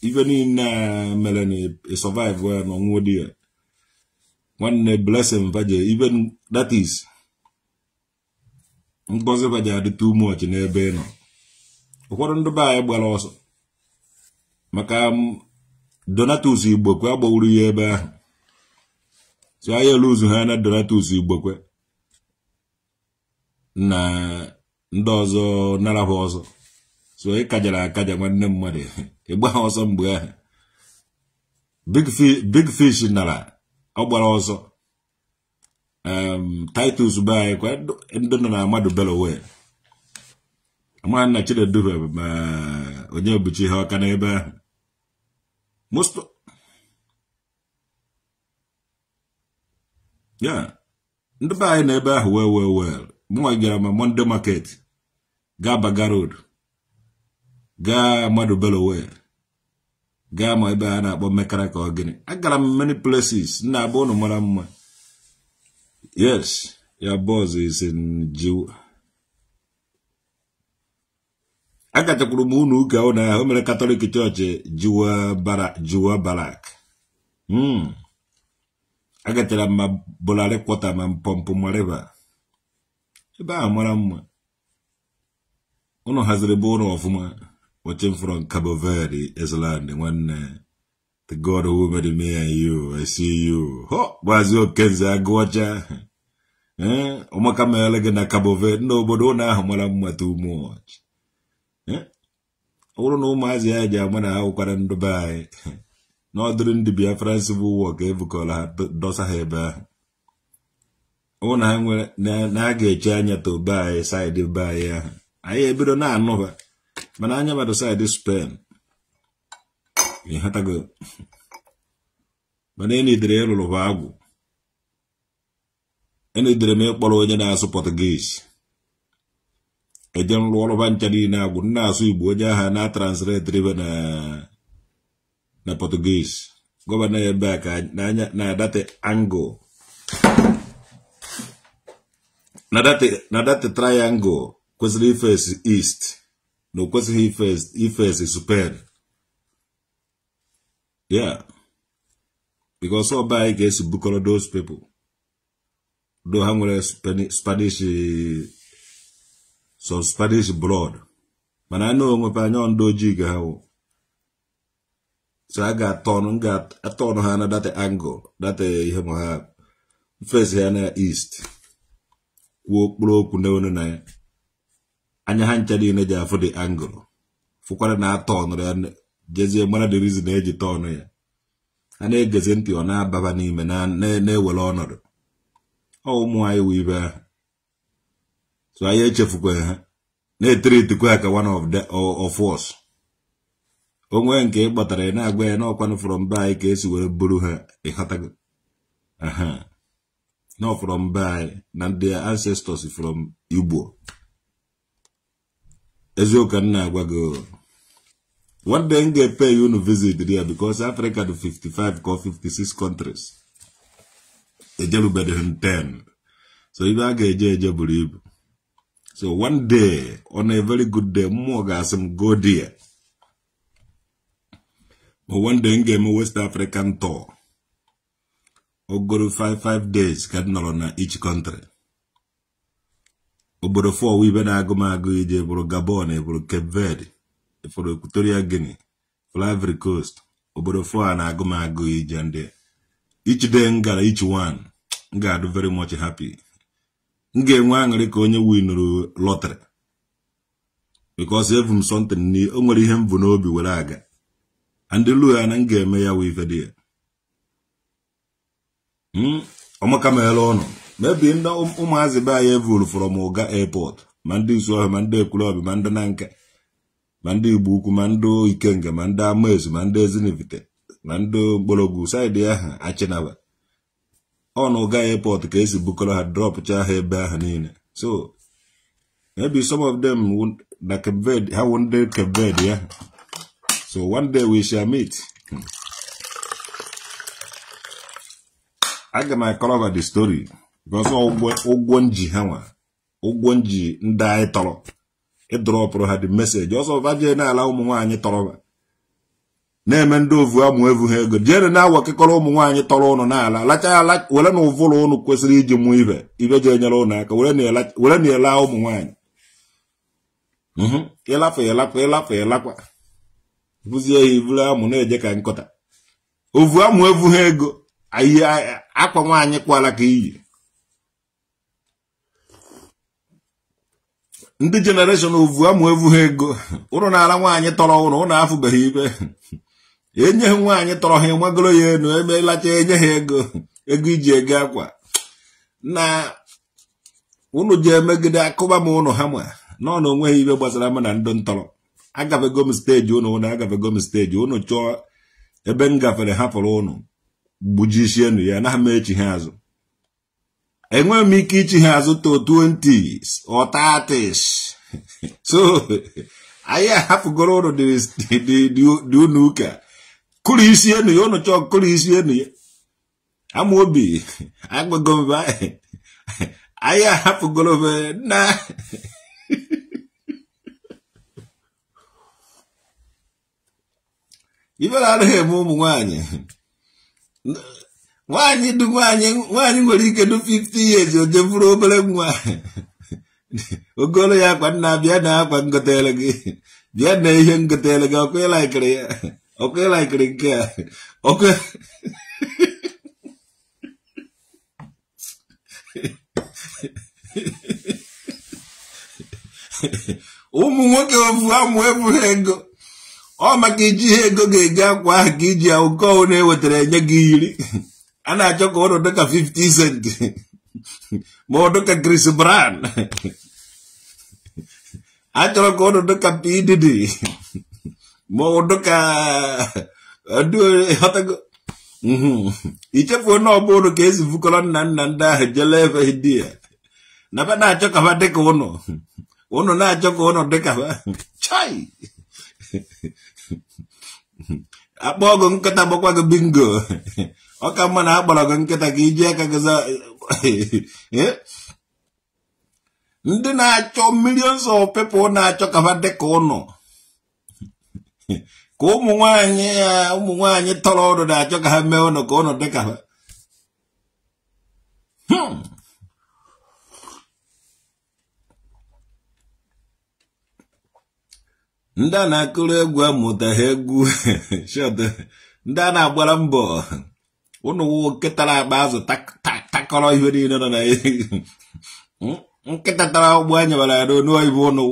ibe niile a mere na e survive ya na ọnwụ dị ya nwanne blessing vaje even that is ngozi vaje adị too n'ebe ị nọ ụfọdụ ndị be anyị gbara ọsọ maka um, donatus igbokwe agbawuru ya ebe ahụ so anyị eluzu ha na donatus igbokwe na ndị ọzọ narabụ ọsọ so ị kajara akaja nwanne mmadụ ịgba ọsọ mgbe ahụ big fish nara ọ gbara ọsọ titus be anyị kwa ndị nọ na amadụ belowe amara nna chineduhe eh, ma onye buchi ihe ọka n'ebe ahụ most ya ndị be anyị na ebe ahụ well well well mụnwa gara ma monde market gaa baga road gaa mmadụ belowe gaa ma ebe a na-akpọ mmekara ka ọ gịnị agara m many places nna abụ ụnụ mara mma yes ya boss is e in jiw agachakwuru m ụnụ ụka ụnụ ahụ mere katọlik chọọchị jiwa barak hmm. agachara m ma bụlarị kwọta ma mpọmpụ mariva ebe ahụ mara mma ụlọ haziri bụ ụlọ ọfụma watching from Cabo Verde island nwanne the god who made me and you I see you ho gbazi okenze agụọcha ee eh, ụmụaka mere gị na Cabo Verde ndị obodo ụlọ ahụ mara mma too much eh, ọ bụrụ na ụmụazị ya ji ama na ha wụkwara ndị be anyị n'ọdịrị ndị biafrance bụ ụwa ka ebukọrọ ha dosa ha ebe ahụ ọ na na ga-eche anya to buy ya, side buy ya ai e bido na-anụ ma mana anya mmadụ ni spen ịghọtago mana lo e ịlụrụ ya ha agwụ e dire me kpolo onye na-asụ lo lo nrụ ọrụba ncha na agu na asụ igbo onye ha na translate rive na na portugese go ba ya na a ka na date angle na that triangle kwesịrị ifesi east na o kwesịghị ifes ya ọba anyị ga-esi bukọrọ those people do ha nwere spanish some spanish blood mana anyị onwepe anya ndị ojii ga ha so a ga-atọnụ ga-atọnụ ha na that angle that ihe ma ha fes ha na east kwuo okpuru okwu n'onu na ya anya ha ncha niile ji afụ dị angụlụ fụkwara na atọnụrụ ya jezie mara dị na eji tọnụ ya ha na-egezi ntị ọ na-ababa n'ime na-ewere ọnọdụ ọ ụmụ anyị wụ ibe ahụ so anyị echefukwaghị ha na-etiritikwa ka one of the of us onwe nke ị kpọtara ị na-agwa ya n'ọkwanụ from be anyị ka esi were buru ha ịghọtago aha not from by but their ancestors from Igbo. Ezoka Nagwago. Oh, what then they pay you to visit there because Africa to 55 or 56 countries. Ejelu better 10. So if I get a believe. So one day, on a very good day, more guys go there. But one day, I'm a West African tour. ogoro 55 days ka m nọrọ na ich country obodo fọ ibe na-agụ m agụ ije bụrụ gabon bụrụ cape verde efụrụ equatorial guinea fụrụ ivory coast obodo fọ a na-agụ m agụ ije ndị ich de m gara each one m ga-adụ very much happy m ga-enwe aṅụrị ka onye winụrụ lọtrị because evu m something o nwere ihe m bụ n'obi were aga and lu ya na m ga-eme ya wee ife dị ya ọmaka hmm? ọmakamela ọnụ mebi ndị um, ụmụazị be anyị evuru from ụga airport ma ndị Isuohia ma ndị Ekwulọbị ma ndị Nanka ma ndị Igbo Ukwu ma ndị Ikenga ma ndị Amaezu ma ndị Ezinivite ma ndị mgbọrọgwụ saịdị ahụ achịnaba ọnụ ụga airport ka esi bukọrọ ha drọpụcha ha ebe ahụ niile so maybe some of them na ha wụ ndị Cape ya so one day we shall meet hmm. aga m akọrọba the story because ụgwọ nji ha nwa ụgwọ nji ndị anyị tọrọ ịdrọpụrụ ha dị meseji ọsọ vajee n'ala ụmụ nwaanyị tọrọba na-eme ndị ovu amụ evu ha ego jere na-awa kekọrọ ụmụ nwaanyị tọrọ ụnụ n'ala lacha ala were na ụvụrụ ụnụ kwesịrị iji mụọ ibe ibe ji enyere ụnụ aka were na ele ụmụ nwaanyị mhm. ịlafụ ịlakwa ịlafụ ịlakwa bụzie ya iburu amụ na-eje ka nkọta ovu amụ evu ha ego ihe akwa nwaanyị kwala ka iyi ndị jenereshọn ovu amụ evu ha ego ụrụ na-ala nwaanyị tọrọ ụrụ ụnụ afụbeghị ibe enyeghị nwaanyị tọrọ ha ịmagoro ya enu emelacha enye ha ego ego iji ego akwa na ụnụ ji emegide akụba m ụnụ ha ma nọ na onweghị ibe gbasara m na ndụ ntọrọ agafego m steji ụnụ ụnụ agafego m steji ụnụ chọọ ebe m gafere hapụrụ ụnụ gbujisienụ ya na ama echi ha azụ enweghị m ike ichi ha azụ to 20s or 30s so anyị ahapụgoro ụlọ dị unu ụka kụrụ isi enu ya ụnụ chọọ kụrụ isi enu ya ama obi agbago mba anyị ahapụgoro na ibe na-adịghị eme ụmụ nwanyị nwaanyị du nwaanyị wanyi nwere ike du 50 years o jeburu obere nwa ogolo ya akwa nna bịa na akwa ya ngotere gị bịa na ihe ngotere gị ọkụ ịlaikiri ya ọkụ ịlaikiri nke a ọkụ ụmụ nwoke ofu amụ ebughị ego ọ maka iji ihe ego ga-eji akwa ahụ ka iji ya oke na ewetara enye gị iri a na-achọ ka ụlọ dịka 50 cent ma ọ dịka Chris Brown a chọrọ ka ụlọ dịka pdd ma ọ ichefu eh, onye mhm. ka esi fukọrọ nna nna ndị ahụ jele ebe dị ya na-achọ ka ha dịka ụnụ ụnụ na-achọ ka ụnụ dịka ha akpọ ọgụ nkịta gbakwa gị bingo ọ ka mma na akpọrọ gị nkịta ka iji aka gị eh? ndị na-achọ millions of people na-achọ ka ha dị ka ụnọ ka ụmụ nwanyị ya eh, ụmụ nwanyị tọrọ ụnụ na-achọ ka ha mee ụnụ ka ụnụ dị ka ha hmm. ndị a na-akụrụ egwu amụtaghị egwu ndị a na-agbara mbọ ụnụ nwoke akpa azụ takọrọ ihe niile nọ na nkịta tara ụgbọ anyabara ya n'onu oyibo ụnụ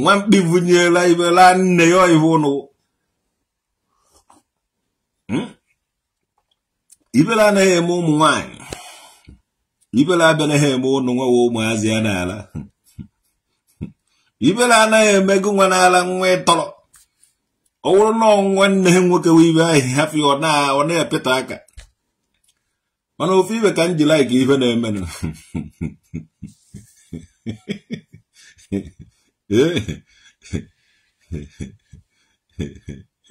nwa mkpi bunyela ibe laa nne ya oyibo ụnụ hmm? ibele anaghị eme ụmụ nwanyị ibele abịanaghị eme ụnụ nwawa ụmụazị ya n'ala ibele anaghị emego nwa n'ala nwa ịtọrọ ọ bụrụ na nwanne ha nwoke wee ibe ahụ hafi ọ na-epeta aka mana ofe ibe ka m ji ife na-eme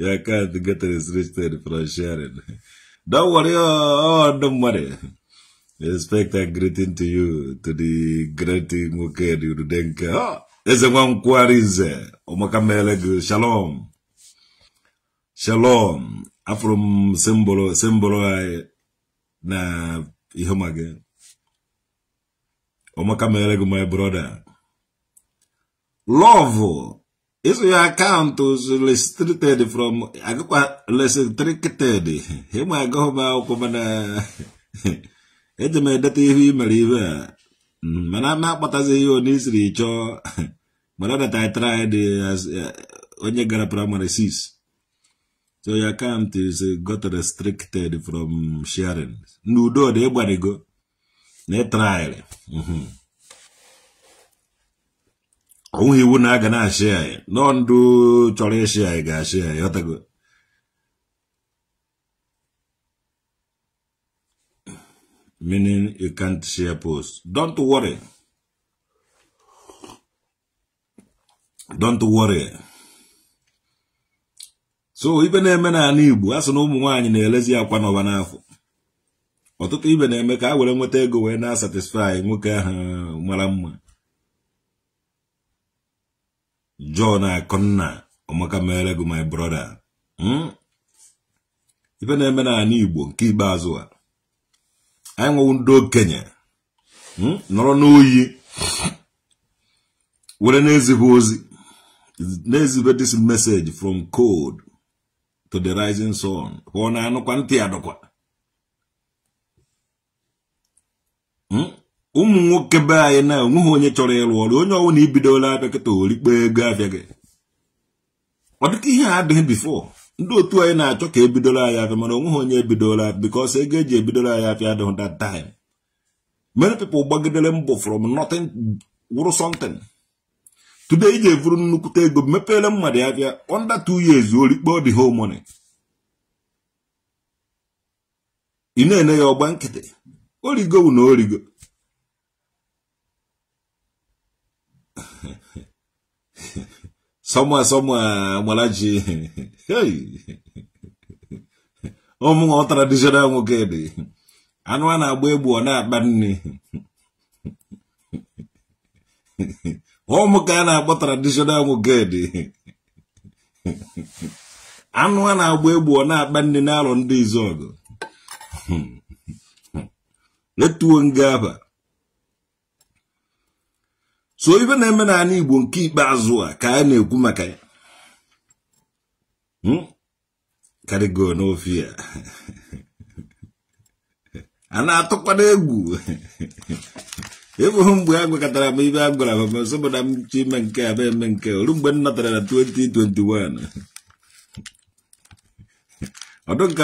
ya can't get restricted from sharing. Don't worry, oh, don't worry. Respect and greeting to you, to the great Mukedu Rudenka. Oh. eze nwa nkwugharị nze ụmụaka mere shalom shalom afro m simbụlụ na ihe ma gị ụmụaka my brother love iso ya akaụntụ restricted from agụkwa restricted ịma agụghị m akwụkwọ mana eji m edeta ihu i mere ibe a Mm, mana na-akpatazi ihe onye isiri chọọ mana that I tried as eh, onye gara primary six so your account is eh, got restricted from sharing n'udo dị ịgbarigo na ịtrịarị mhm. onweghị iwu na a ga na-ashịa anyị nọ ndụ chọrọ ịshịa anyị ga-ashịa anyị ọtago meaning you can't share posts. Don't worry. Don't worry. so ibe na-eme n'ala Igbo a na ụmụ nwaanyị na-elezi akwa n'ọba n'afọ ọtụtụ ibe na-eme ka a were nweta ego wee na-asatisfai nwoke ahụ mara mma John Akụnna ọmaka mere gị my brother hmm? ibe na-eme n'ala Igbo nke ikpeazụ a anyị nwewu ndị okenye hmm? nọrọ n'oyi were na-ezibe ozi na-ezibe this message from cold to the rising sun hụọ na anụkwa ntị ya dụkwa hmm? ụmụ nwoke be anyị na onweghị onye chọrọ ịrụ ọrụ onye ọwụ na ibidola abịa kịta orikpe ego abịa gị ọ dịka ihe a adịghị before ndị otu anyị na-achọ ka ebidola bidoro afịa mana onweghị onye ebidola because ego eji ebidoro anyị afịa adịghị that time many people gbagidere mbọ from nothing wụrụ something today iji evuru nnukwute ego mepere mmadụ afịa under two years ọ dị whole money ị na-ene ya ọgba nkịtị origo na origo somewhere somewhere Malachi ụmụ ọ traditional nwoke dị anụ a na-agba egbu ọ na-akpa nri ụmụ ka na-akpọ traditional nwoke dị Anwa na-agba egbu ọ na-akpa nri n'alụ ndị izọgụ letuo nga aba so ibe na-eme n'ala Igbo nke ikpeazụ a ka a na-ekwu maka ya hmm? karịgo n'ofe ya a na-atụkwado egwu ebughị mgbe a gwakọtara m ibe a gwara m masobụ na m chi ime nke a eme nke olu mgbe m natara na 2021 ọdụ nka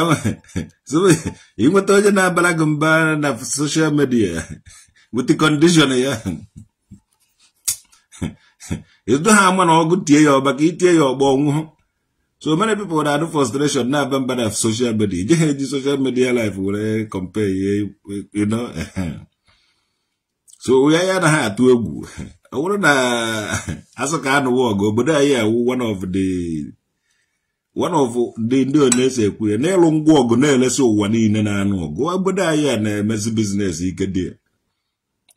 ịnweta onye na-abara gị mba na soshal midia wit kọndishọn ya edo ha ama na ọgụ tie ya ọba ka itie ya ọgba ọnwụhụ so many people na-adụ frustration na-aba mbada na social media ije ha eji social media life were compare ihe you know so ya ya na ha atụ egwu ọ bụrụ na asụ ka anụwa ọgụ obodo anyị awụ one of the one of the ndị onye-ese ekwu ya ịlụ ngwa ọgụ na-elesi ụwa niile na-anụ ọgụ obodo anyị a na-emezi biznes ike dị ya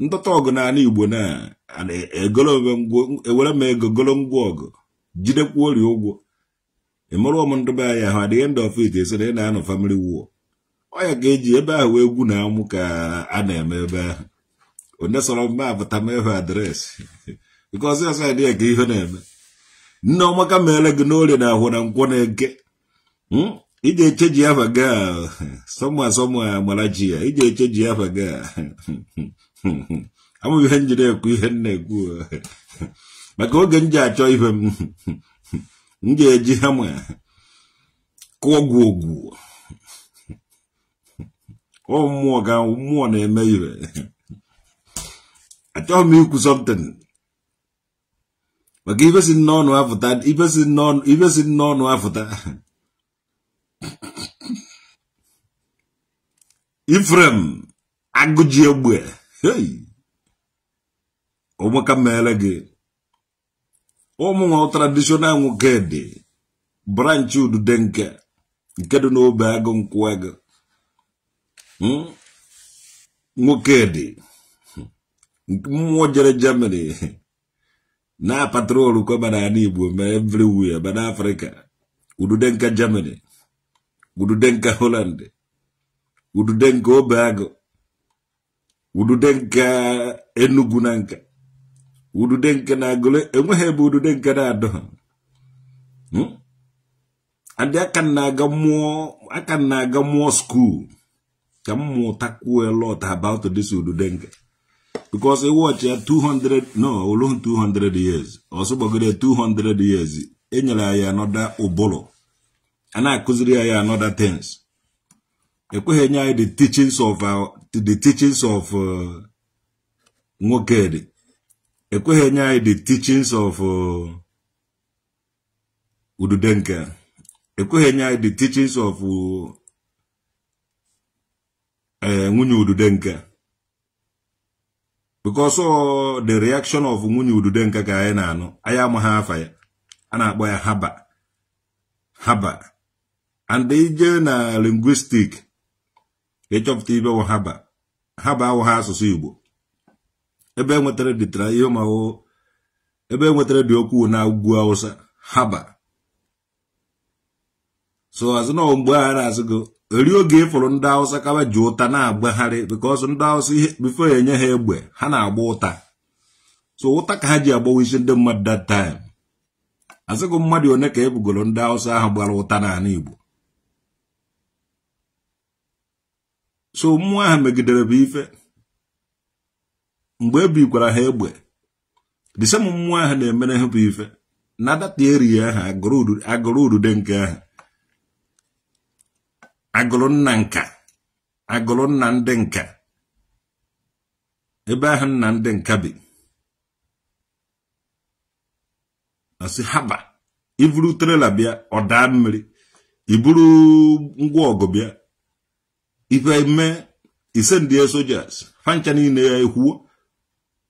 ntọta ọgụ n'ala igbo na e, ewere m ego golo ngwa ọgụ jidekwuo orie ụgwọ ịmụrụ m ndị be anyị ahụ adịghị ndị ọfit esi na ị na-anọ famili wuo ọya ga-eji ebe ahụ egwu na amụ ka a na-eme ebe ahụ onye sọrọ mma apụta m ịhụ adreesị nke ọzọ ọzọ adịghị ka ihe na-eme nne ọmaka meere gị n'orie na ahụ na nkwụ na-eke ije eche ji afa gaa sọmụ asọmụ amara ji ya ije eche ji afa gaa amụghị ihe njiri jiri ekwu ihe m na-ekwu maka oge m ji achọ ihe m m ga-eji hama kụọ ọgwụ ogwu ọ mmụọ ga mmụọ na-eme ire achọghị m ikwu something maka ibe si n'ọnụ afụta ibe si n'ọnụ afụta Ifrem agụji egbe Ei! Uma camela aqui Uma ao tradicional um quede. Branchu do denke. Quede no bago um cuega. Hum? Um quede. Um jere Na patrolo o na anibu. Ma everywhere. Ma na Udu denka Germany. Udu denka Holland. Udu denka bago. udude nke enugu na nka udude nke na agụle enweghị ebe udude nke na-adọ ha ndị hmm? aka na-aga mmụọ aka na-aga mmụọ skuul ka m mụtakwuo a lot about this udude nke because ị wọchị ya 200 no olohu 200 years ọsọ gbagoro 200 years enyere ya ya anọda ụbụrụ a na-akụziri ya ya anọda things ekweghị enye anyị the teachings of uh, the teachings of uh, Nwokedi ekweghị enye anyị the teachings of uh, Ududenke ekweghị enye anyị the teachings of eh, nwunye Ududenke because the reaction of nwunye Ududenke ka anyị na-anụ anyị amaghị afa ya a na-akpọ ya haba haba and ije na linguistic ịchọpụta ibe wụ haba haba awụ ha asụsụ Igbo ebe e nwetara dịtara ihe ụmụahụ ebe e nwetara dị okwu na ugwu Hausa haba so azụ na mgbe a na-asị gị eri oge ịfụrụ e ndị awụsa kaba ji ụta na-agbagharị because ndị awụsa ihe bifo enye ha egbe ha na-agba ụta so ụta ka ha ji agbawa isi ndị mmadụ that time asị mmadụ one ka ebugoro ndị awụsa ahụ gbara ụta n'ala Igbo so mmụọ ahụ megidere bụ ife mgbe ebikwara ha egbe disem mmụọ ahụ na-emere ha bụ ife na data ahụ agụrụ udude nke ahụ agụrụ nna nka agụrụ nna ndị nka ebe ahụ nna ndị nka bi asị haba iburu trela bịa ọ daa mmiri iburu ngwa ọgụ bịa ife ime ise ndị sojas ha ncha ya ekwuo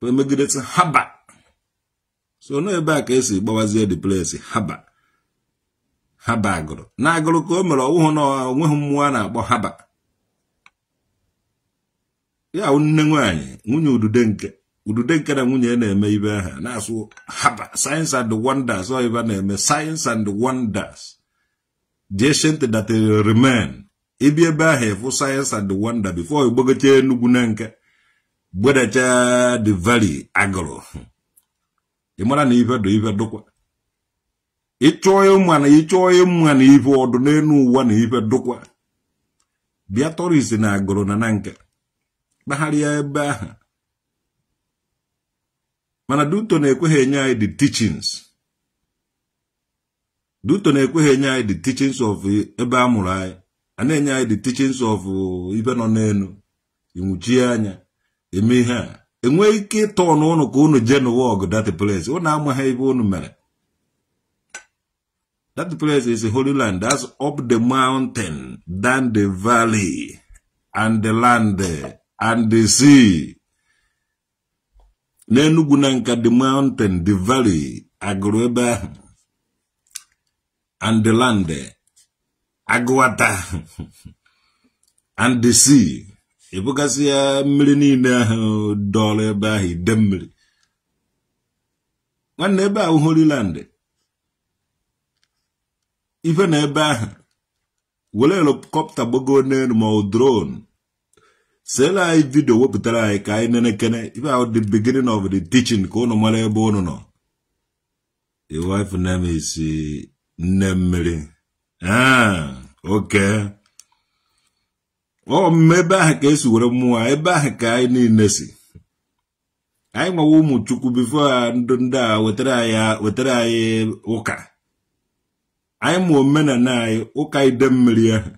emegidesi haba so na ebe a ka esi gbawazie the place haba haba agụrụ na agụrụ ka o mere ọwụhụ na onweghị mmụọ a na-akpọ haba ya nne nwanyị nwunye udude nke udude nke na nwunye na-eme ibe ha na-asụ haba science and wonders ọ na-eme science and wonders the ancient that remain ebi ebe ahụ ịfụ sayensị and wonder before igbogocha enugwu na nke gbedacha the valley agụrụ ị mara na ife dụ ife dụkwa ịchọọ ịma na ịchọọ ịma na ife ọdụ n'elu ụwa na ife dụkwa bịa tọrisi na agụrụ na na nke kpagharịa ebe ahụ mana duto na-ekweghị enye anyị the teachings duto na-ekweghị enye anyị the teachings of ebe a mụrụ anyị a na-enye anyị the teachings of uh, ibe nọ n'elu ịnwụchie anya eme ihe a enweghị ike ịtọ n'ụlọ ka unu jee n'ụwa ọgụ that place amaghị ebe unu mere that place is a holy land that's up the mountain down the valley and the land and the sea n'enugwu na nka the mountain the valley agụrụ ebe ahụ and the land agụwata and ebugasị ya mmiri niile ahụ dọrọ ebe ahụ ide mmiri nwanne ebe ahụ horiland ife na ebe ahụ were helikọpta gbago n'elu ma ọ drone sela anyị vidio wepụtara anyị ka anyị nenekene ife ahụ di beginning of the teaching ka ụnụ mara ebe ụnụ nọ the wife name is nne mmiri ee ah, oke ọmụme ebe ahụ ka esi were mmụọ ebe ahụ ka anyị niile si anyị nwawa ụmụ chukwu bifo ndụ ndị a wetara anyị ụka anyị na omenala anyị ụka ide mmiri ahụ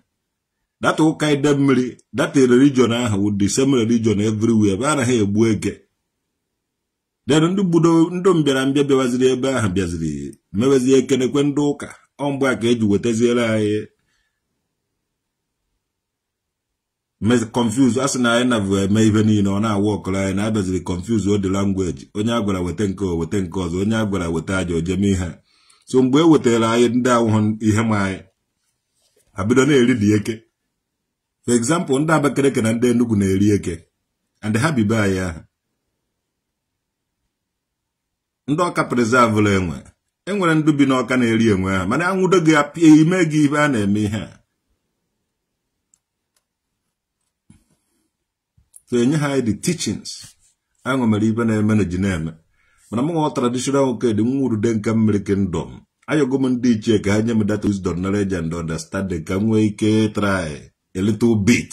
data ụka ide mmiri data religion ahụ wụ the same religion everywhere ebe anaghị egbu eke den ndị mbiara mbịa bịawaziri ebe ahụ bịaziri mewezie ekenekwe ndị ụka ọ mgba a ka eji wetaziere anyị confuse a sị na anyị nabụ eme ihe niile ọ na-awụ ọkọrọ anyị na abịaziri confuse ode langweji onye a gwara weta nke ọ weta nke ọzọ onye a gwara weta aja ojeme ihe so mgbe e wetara anyị ndị ahụhụ ihe ma anyị abido na-eri dị eke for example ndị Abakaliki na ndị Enugu na-eri eke and ha bibe anyị ahụ ndị ọka preserve enwe E nwere ndị bi n'ọka na-eri enwe ha mana anwụdo gị apịa e ime gị ibe a na-eme ihe a so enye ha the teachings aṅụ mere ibe na-eme na ji na-eme mana m nwa traditional nwoke dị nwa urude nke mmiri kingdom ayọgo m ndị ichie ka ha nye m data wisdom knowledge and understanding ka m nwee ike try a little bit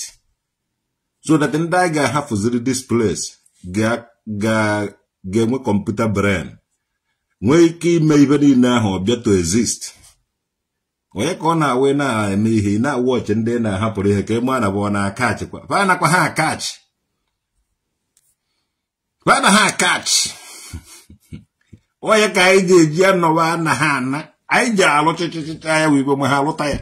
so that ndị anyị ga-ahafụziri this place ga-enwe kọmputa brain nwee ike ime ibe niile ahụ ọbịa to exist onye ka ọ na-awe na-eme ihe na-awụ ọchị ndị na-ahapụrụ ihe ka ịma e na bụ na-akachi kwa. fa nakwa ha akachi fa na ha akachi onye ka anyị ji eji anọwa na ha ana anyị ji alụ chịchịchịcha ya wibe ma ha alụta ya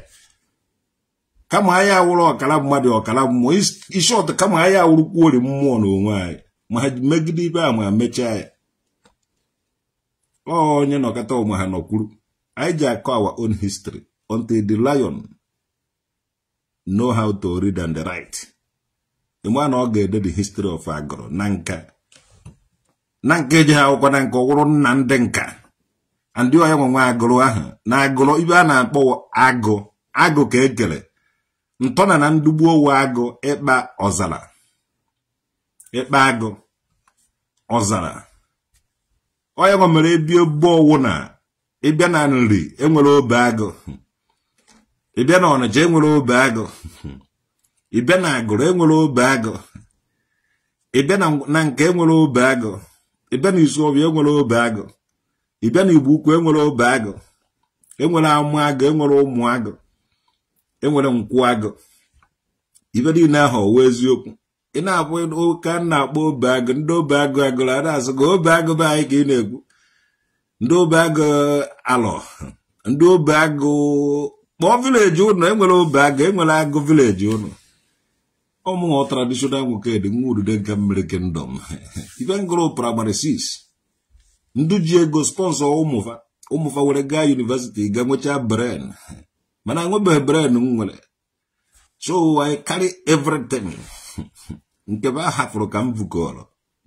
kama anyị awụrụ ọkara mmadụ ọkara mmụọ isi ọtọ kama anyị awụrụ kwuori mmụọ n'onwe anyị ma ha megide ibe a ma mechaa ya onye nọkọta ụmụ ha nọkwuru anyị ji akọ our own history until the lion know how to read and write ịma na ọ ga-ede the history of agụrụ na nka na nka eji ha akwụkwọ na nka ọwụrụ nna ndị nka ndị onye nwenwe nwa agụrụ ahụ na agụrụ ibe a na-akpọ agụ agụ ka ekele ntọna na ndugbu owe agụ ịkpa ọzara ịkpa agụ ọzara onye nwa mere ebie gbowụ na ịbịa na nri enwere obe agụ ịbịa na ọnịcha enwere obe agụ ịbịa na agụrụ enwere obe agụ ịbịa na nke enwere obe agụ ịbịa na isuọbịa enwere obe agụ ịbịa na igbo ukwu enwere obe agụ enwere amụ agụ enwere ụmụ agụ enwere nkwụ agụ ibe niile ahụ owe eziokwu ị na-akwụ ụka m na-akpọ obeagụ ndị obeagụ agụrụ ada na ga gị obeagụ be anyị ka ị na-ekwu ndị obeagụ alọ ndị obeagụ kpọọ vileji ụnụ enwere agụ enwere agụ vileji ụnụ ọmụọ tradishonal nwoke dị nwa udude nke mmiri kingdom ife ngụrụ praịmarị sis. ndụ ji ego spọnsọ ụmụfa ụmụfa nwere gaa yunivesiti ga nwechaa bren mana anwebeghị bren m nwere so I carry everything nke be a hafụrụ ka m vukọrọ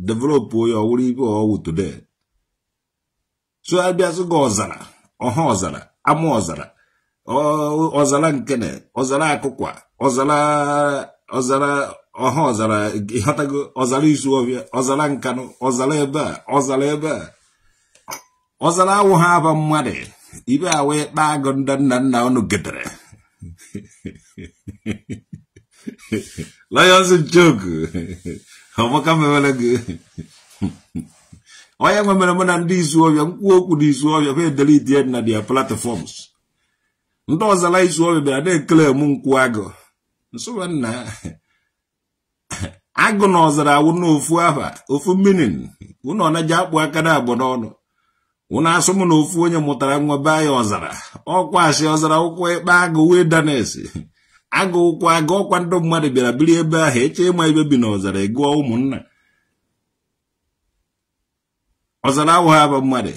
developụ onye ọwụrụ ibe ọwụ today tụgharịbịazụ gị ọzara ọha ọzara ama ọzara ọzara nkene ọzara akụkwa ọzara ọzara ọha ọzara ịghọtago ọzara izu ọbịa ọzara nkanụ ọzara ebe a ọzara ebe a ọzara awụ ha aba mmadụ ibe awa ịkpa agụ nna nna nna unu gedere Lions joke amaka mewere gị onye nwe mere na ndị izu ọbịa mkpu okwu na izu ọbịa kwa edelidi na dia platforms ndị ọzara izu ọbịa bịara na-ekele mụ nkwụ agụ nna agụ na ọzara awụ n'ofu aha ofu minin ụnụ ọnaji akpụ aka na n'ọnụ ụnụ asụ na ofu onye mụtara nwa ọzara ọkwa asị ọzara agụkwa agụọkwa ndị mmadụ bịara biri ebe ahụ eche ịma ebe bi n'ọzara ịgụọ e ụmụnna ọzara awụghị aba mmadụ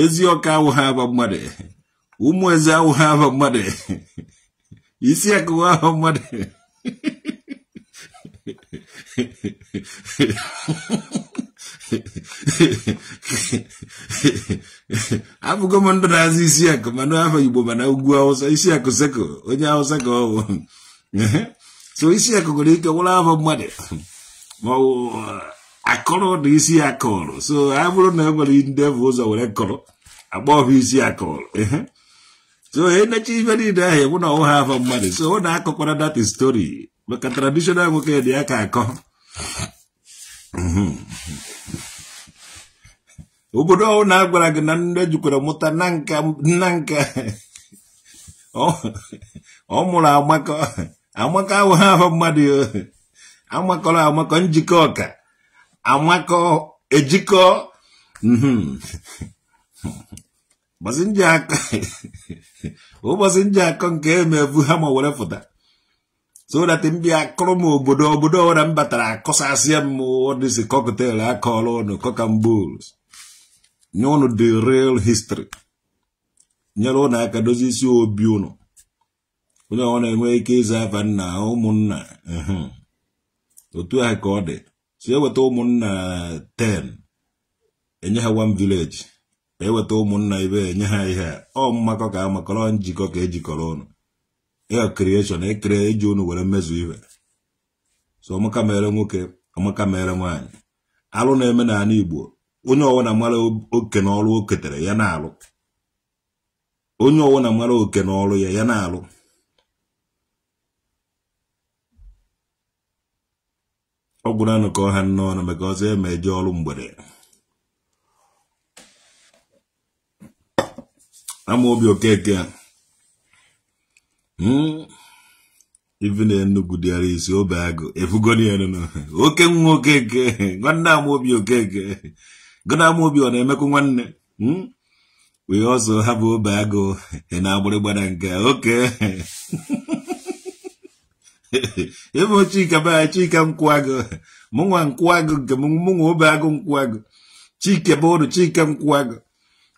ezi ọka awụghị aba mmadụ ụmụ eze awụghị aba mmadụ isi akụwa aba mmadụ abụgo m ndụ na-azụ isi akụ mana afọ igbo mana ugwu awụsa isi akụ seko onye awụsa ka ọ wụ so isi akụ nwere ike wụrụ afọ mmadụ ma ọ akọrọ dị isi ya kọrọ so a bụrụ na e nwere ndị bụ ụzọ were kọrọ agba ọhụ isi ya kọrọ so enechi ife niile ahụ ewu na ọwụha afọ mmadụ so ọ na-akọkwara dat stori maka tradishonal nwoke dị ya ka akọ Mm-hmm. obodo ọhụụ na-agwara gị na nne jukwara mụta na nka ọ mụrụ amakọ amaka awụghị ahụ mmadụ amakọrọ amakọ njikọ ọka amakọ ejikọ mm-hmm. ụbọchị nji akọ nke emevu ha ma were fụta so that ndị akụrụ m obodo obodo ọra m batara akọsasịa m dịzi kọktel akọọla ụnụ kọkambol nye ụnụ the real history nyere ụnụ aka dozie isi obi ụnụ onye ọ na-enwe ike ịza afa nna ụmụnna otu ahụ ka ọ dị so eweta ụmụnna 10 enye ha one village eweta ụmụnna ibe enye ha ihe ọ mmakọ ka amakọrọ njikọ ka ejikọrọ ụnụ ya creation ekere iji unu were mmezu ibe so amaka mere nwoke amaka mere nwaanyị alụ na-eme n'ala igbo onye ọwụna mara oke n'ọrụ o ketere ya na-alụ onye ọwụna mara oke n'ọrụ ya ya na-alụ ọ gwụrụ anụ ka ọha n'ọnụ maka ọzọ eme eje ọrụ mgbede ama obi okeke a Hmm? even Enugu there is Obago efugolie no oke nwa okeke nwanne Amobi okeke gona obi ọ na-emekwu nwanne we also have Obago na agbụrịgbara nke oke ebe Chika baa Chika nkwụagụ mụnwa nkwụagụ nke mụnwa Obago nkwụagụ Chike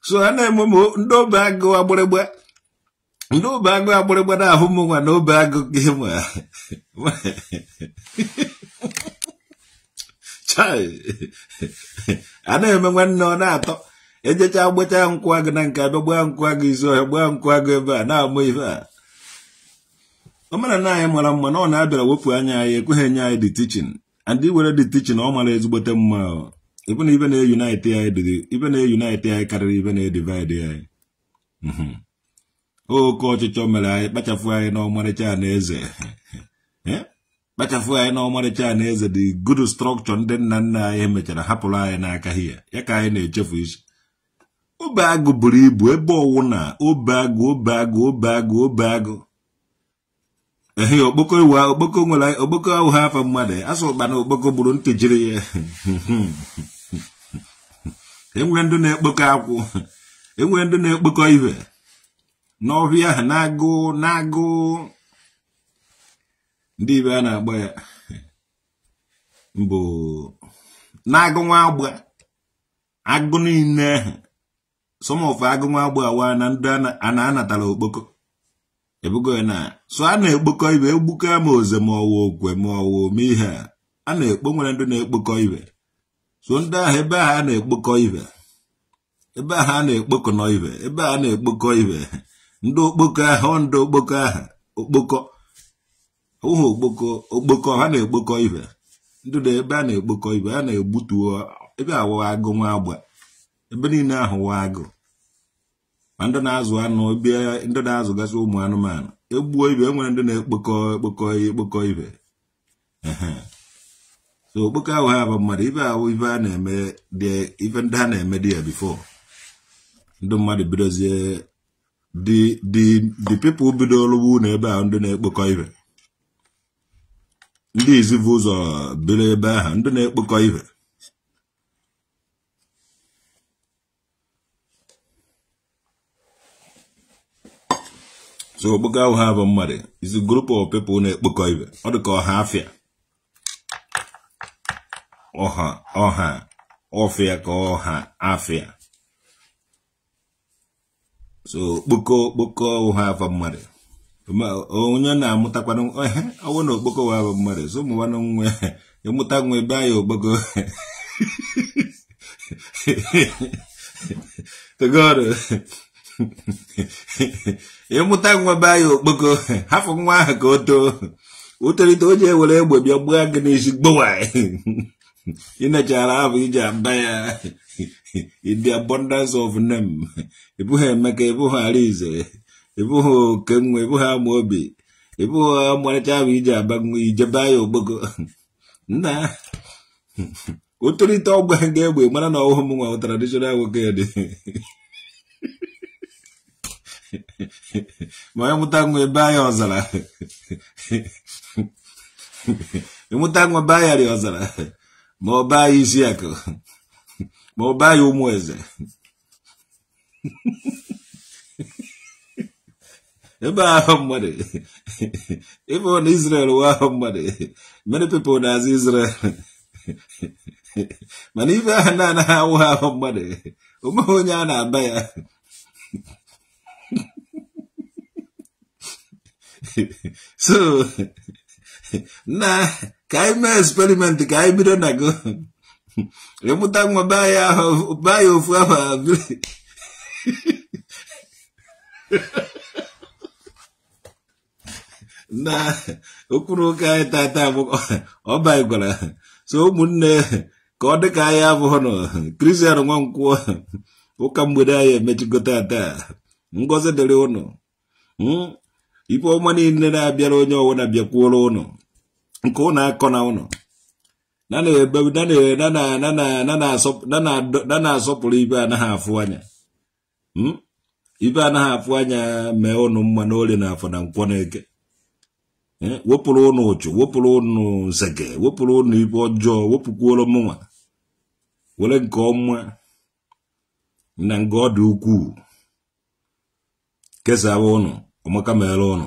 so a na-eme ndị Obago agbụrịgba Ndị n'obe agụ agbịrịgba na-ahụ m nwa na obe agụ gị nwa a na-eme nwanne ọ na-atọ ejecha gbachaa nkwụ agụ na nke abịa gbaa nkwụ agụ izu ọhịa gbaa nkwụ agụ ebe a na-amụ ibe a ọ mara na anyị mara mma na ọ na-abịara wepụ anya anyị ekweghị enye anyị dị tichin and iwere dị tichin ọ mara ezigbote mma ebe na ibe na-eyunite anyị karịrị ibe na-edivaịdị anyị mhm. oke ọchịchọ mere anyị kpachapụ anyị n'ọmarịcha anaeze eh? kpachapụ anyị n'ọmarịcha anaeze dị good structure ndị nna nna anyị mechara hapụrụ anyị n'aka hia ya ka anyị na-echefu isi obe agụ buru ibu ebe ọwụ na obe agụ obe agụ obe agụ obe agụ ehe okpoko iwu okpoko nwere okpoko ahụ ha afọ mmadụ asụ ụkpa na okpoko gburu ntị jiri ya enwere ndị na-ekpokọ akwụ enwere ndị na-ekpokọ ibe n'ọbịa ahụ na-agụ na-agụ ndị ibe a na-agba ya mbụ na-agụ nwa agba agụ niile ahụ sọmọfụ agụ nwa agba awa na ndị a na-anatara okpoko ebugo ya na so a na-ekpokọ ibe egbuke ma oze ma ọwa okwe ma ọwa ome ihe a na-ekpo nwere ndị na-ekpokọ ibe so ndị ahụ ebe ahụ a na-ekpokọ ibe ebe ahụ a na-ekpokọ ibe ebe ahụ a na-ekpokọ ibe ndị okpoko ahụ ndị okpoko okpokọ okpoko ụhụ okpoko okpoko ha na-ekpokọ ibe ndị dị ebe a na-ekpokọ ibe a na-egbutu ebe wụwa agụ nwa agba ebe niile ahụwa agụ ma ndị na-azụ anụ bịa ndị na-azụgasị ụmụ anụmanụ egbuo ibe e nwere ndị na-ekpokọ ekpokọ ekpokọ ibe so okpoko ahụ ha bụ mmadụ ibe ahụ ibe a na-eme dị ife ndị ha na-eme dị ya bifo ndị mmadụ bidozie the the the people bidoro wu na ebe ahụ ndị na-ekpokọ ihe ndị izivu ụzọ biri ebe ahụ ndị na-ekpokọ ihe so okpoko ahụ ha bụ mmadụ isi grupu group of na-ekpokọ ihe ọ dị ka ọha afịa ọha ọha ọfịa ka ọha afịa so okpoko okpoko ụha afọ mmadụ onye na-amụtakwanụ ehe ọwụ na okpoko ụha afọ mmadụ so na nwe ịmụta nwa ebe anya okpoko togoro ịmụta nwa be okpoko hafụ nwa ahụ ka o too o tolite o ji ewere egbe bịa gbaa gị n'isi gbowa ịnechara abụ ije ada ya the abundance of name ibuhe emeka ibuhe Alize, ibuhe Kengu, ịbụghị Amobi, ibuhe amarịcha abụ iji abanwe ijeba ya ogbogo nna otolite ọgba ga-egbe mara na ọhụụ m nwa traditional nwoke dị ịmụta ma ọ baa ya isi akụ ma ọ baa ya ụmụ eze ebe ahụ mmadụ ebe ọ na Israel wee ahụ mmadụ many people na-azụ Israel mana ibe ahụ na-anaghị awụ ha ahụ mmadụ omeghị onye a na-aba ya so na ka anyị mee eksperimenti ka hmm? anyị bido na go ịmụta nwa be anyị ofu ahụ abiri na okpuru ụka anyị tata ọba gwara so ụmụnne ka ọ ka anyị abụghị nọ nwa nwankwụọ ụka mgbede anyị emechigo taa ngọzi dịrị ụnụ ife ọma niile na-abịara onye ọwụna bịakwuoro ụnụ nke ụnụ akọ na ụnụ na na-asọpụrụ ibe anaghị afụ anya hmm? ibe anaghị afụ anya mee ụnụ mma n'ole na afọ na nkwọ na-eke eh, wepụrụ ụnụ ụchụ wepụrụ ụnụ nzeke wepụrụ ụnụ ibe ọjọọ wepụkwuoro mụnwa were nke ọma na nga ọ dị ukwuu kesawa ụnụ ọmaka mere ụnụ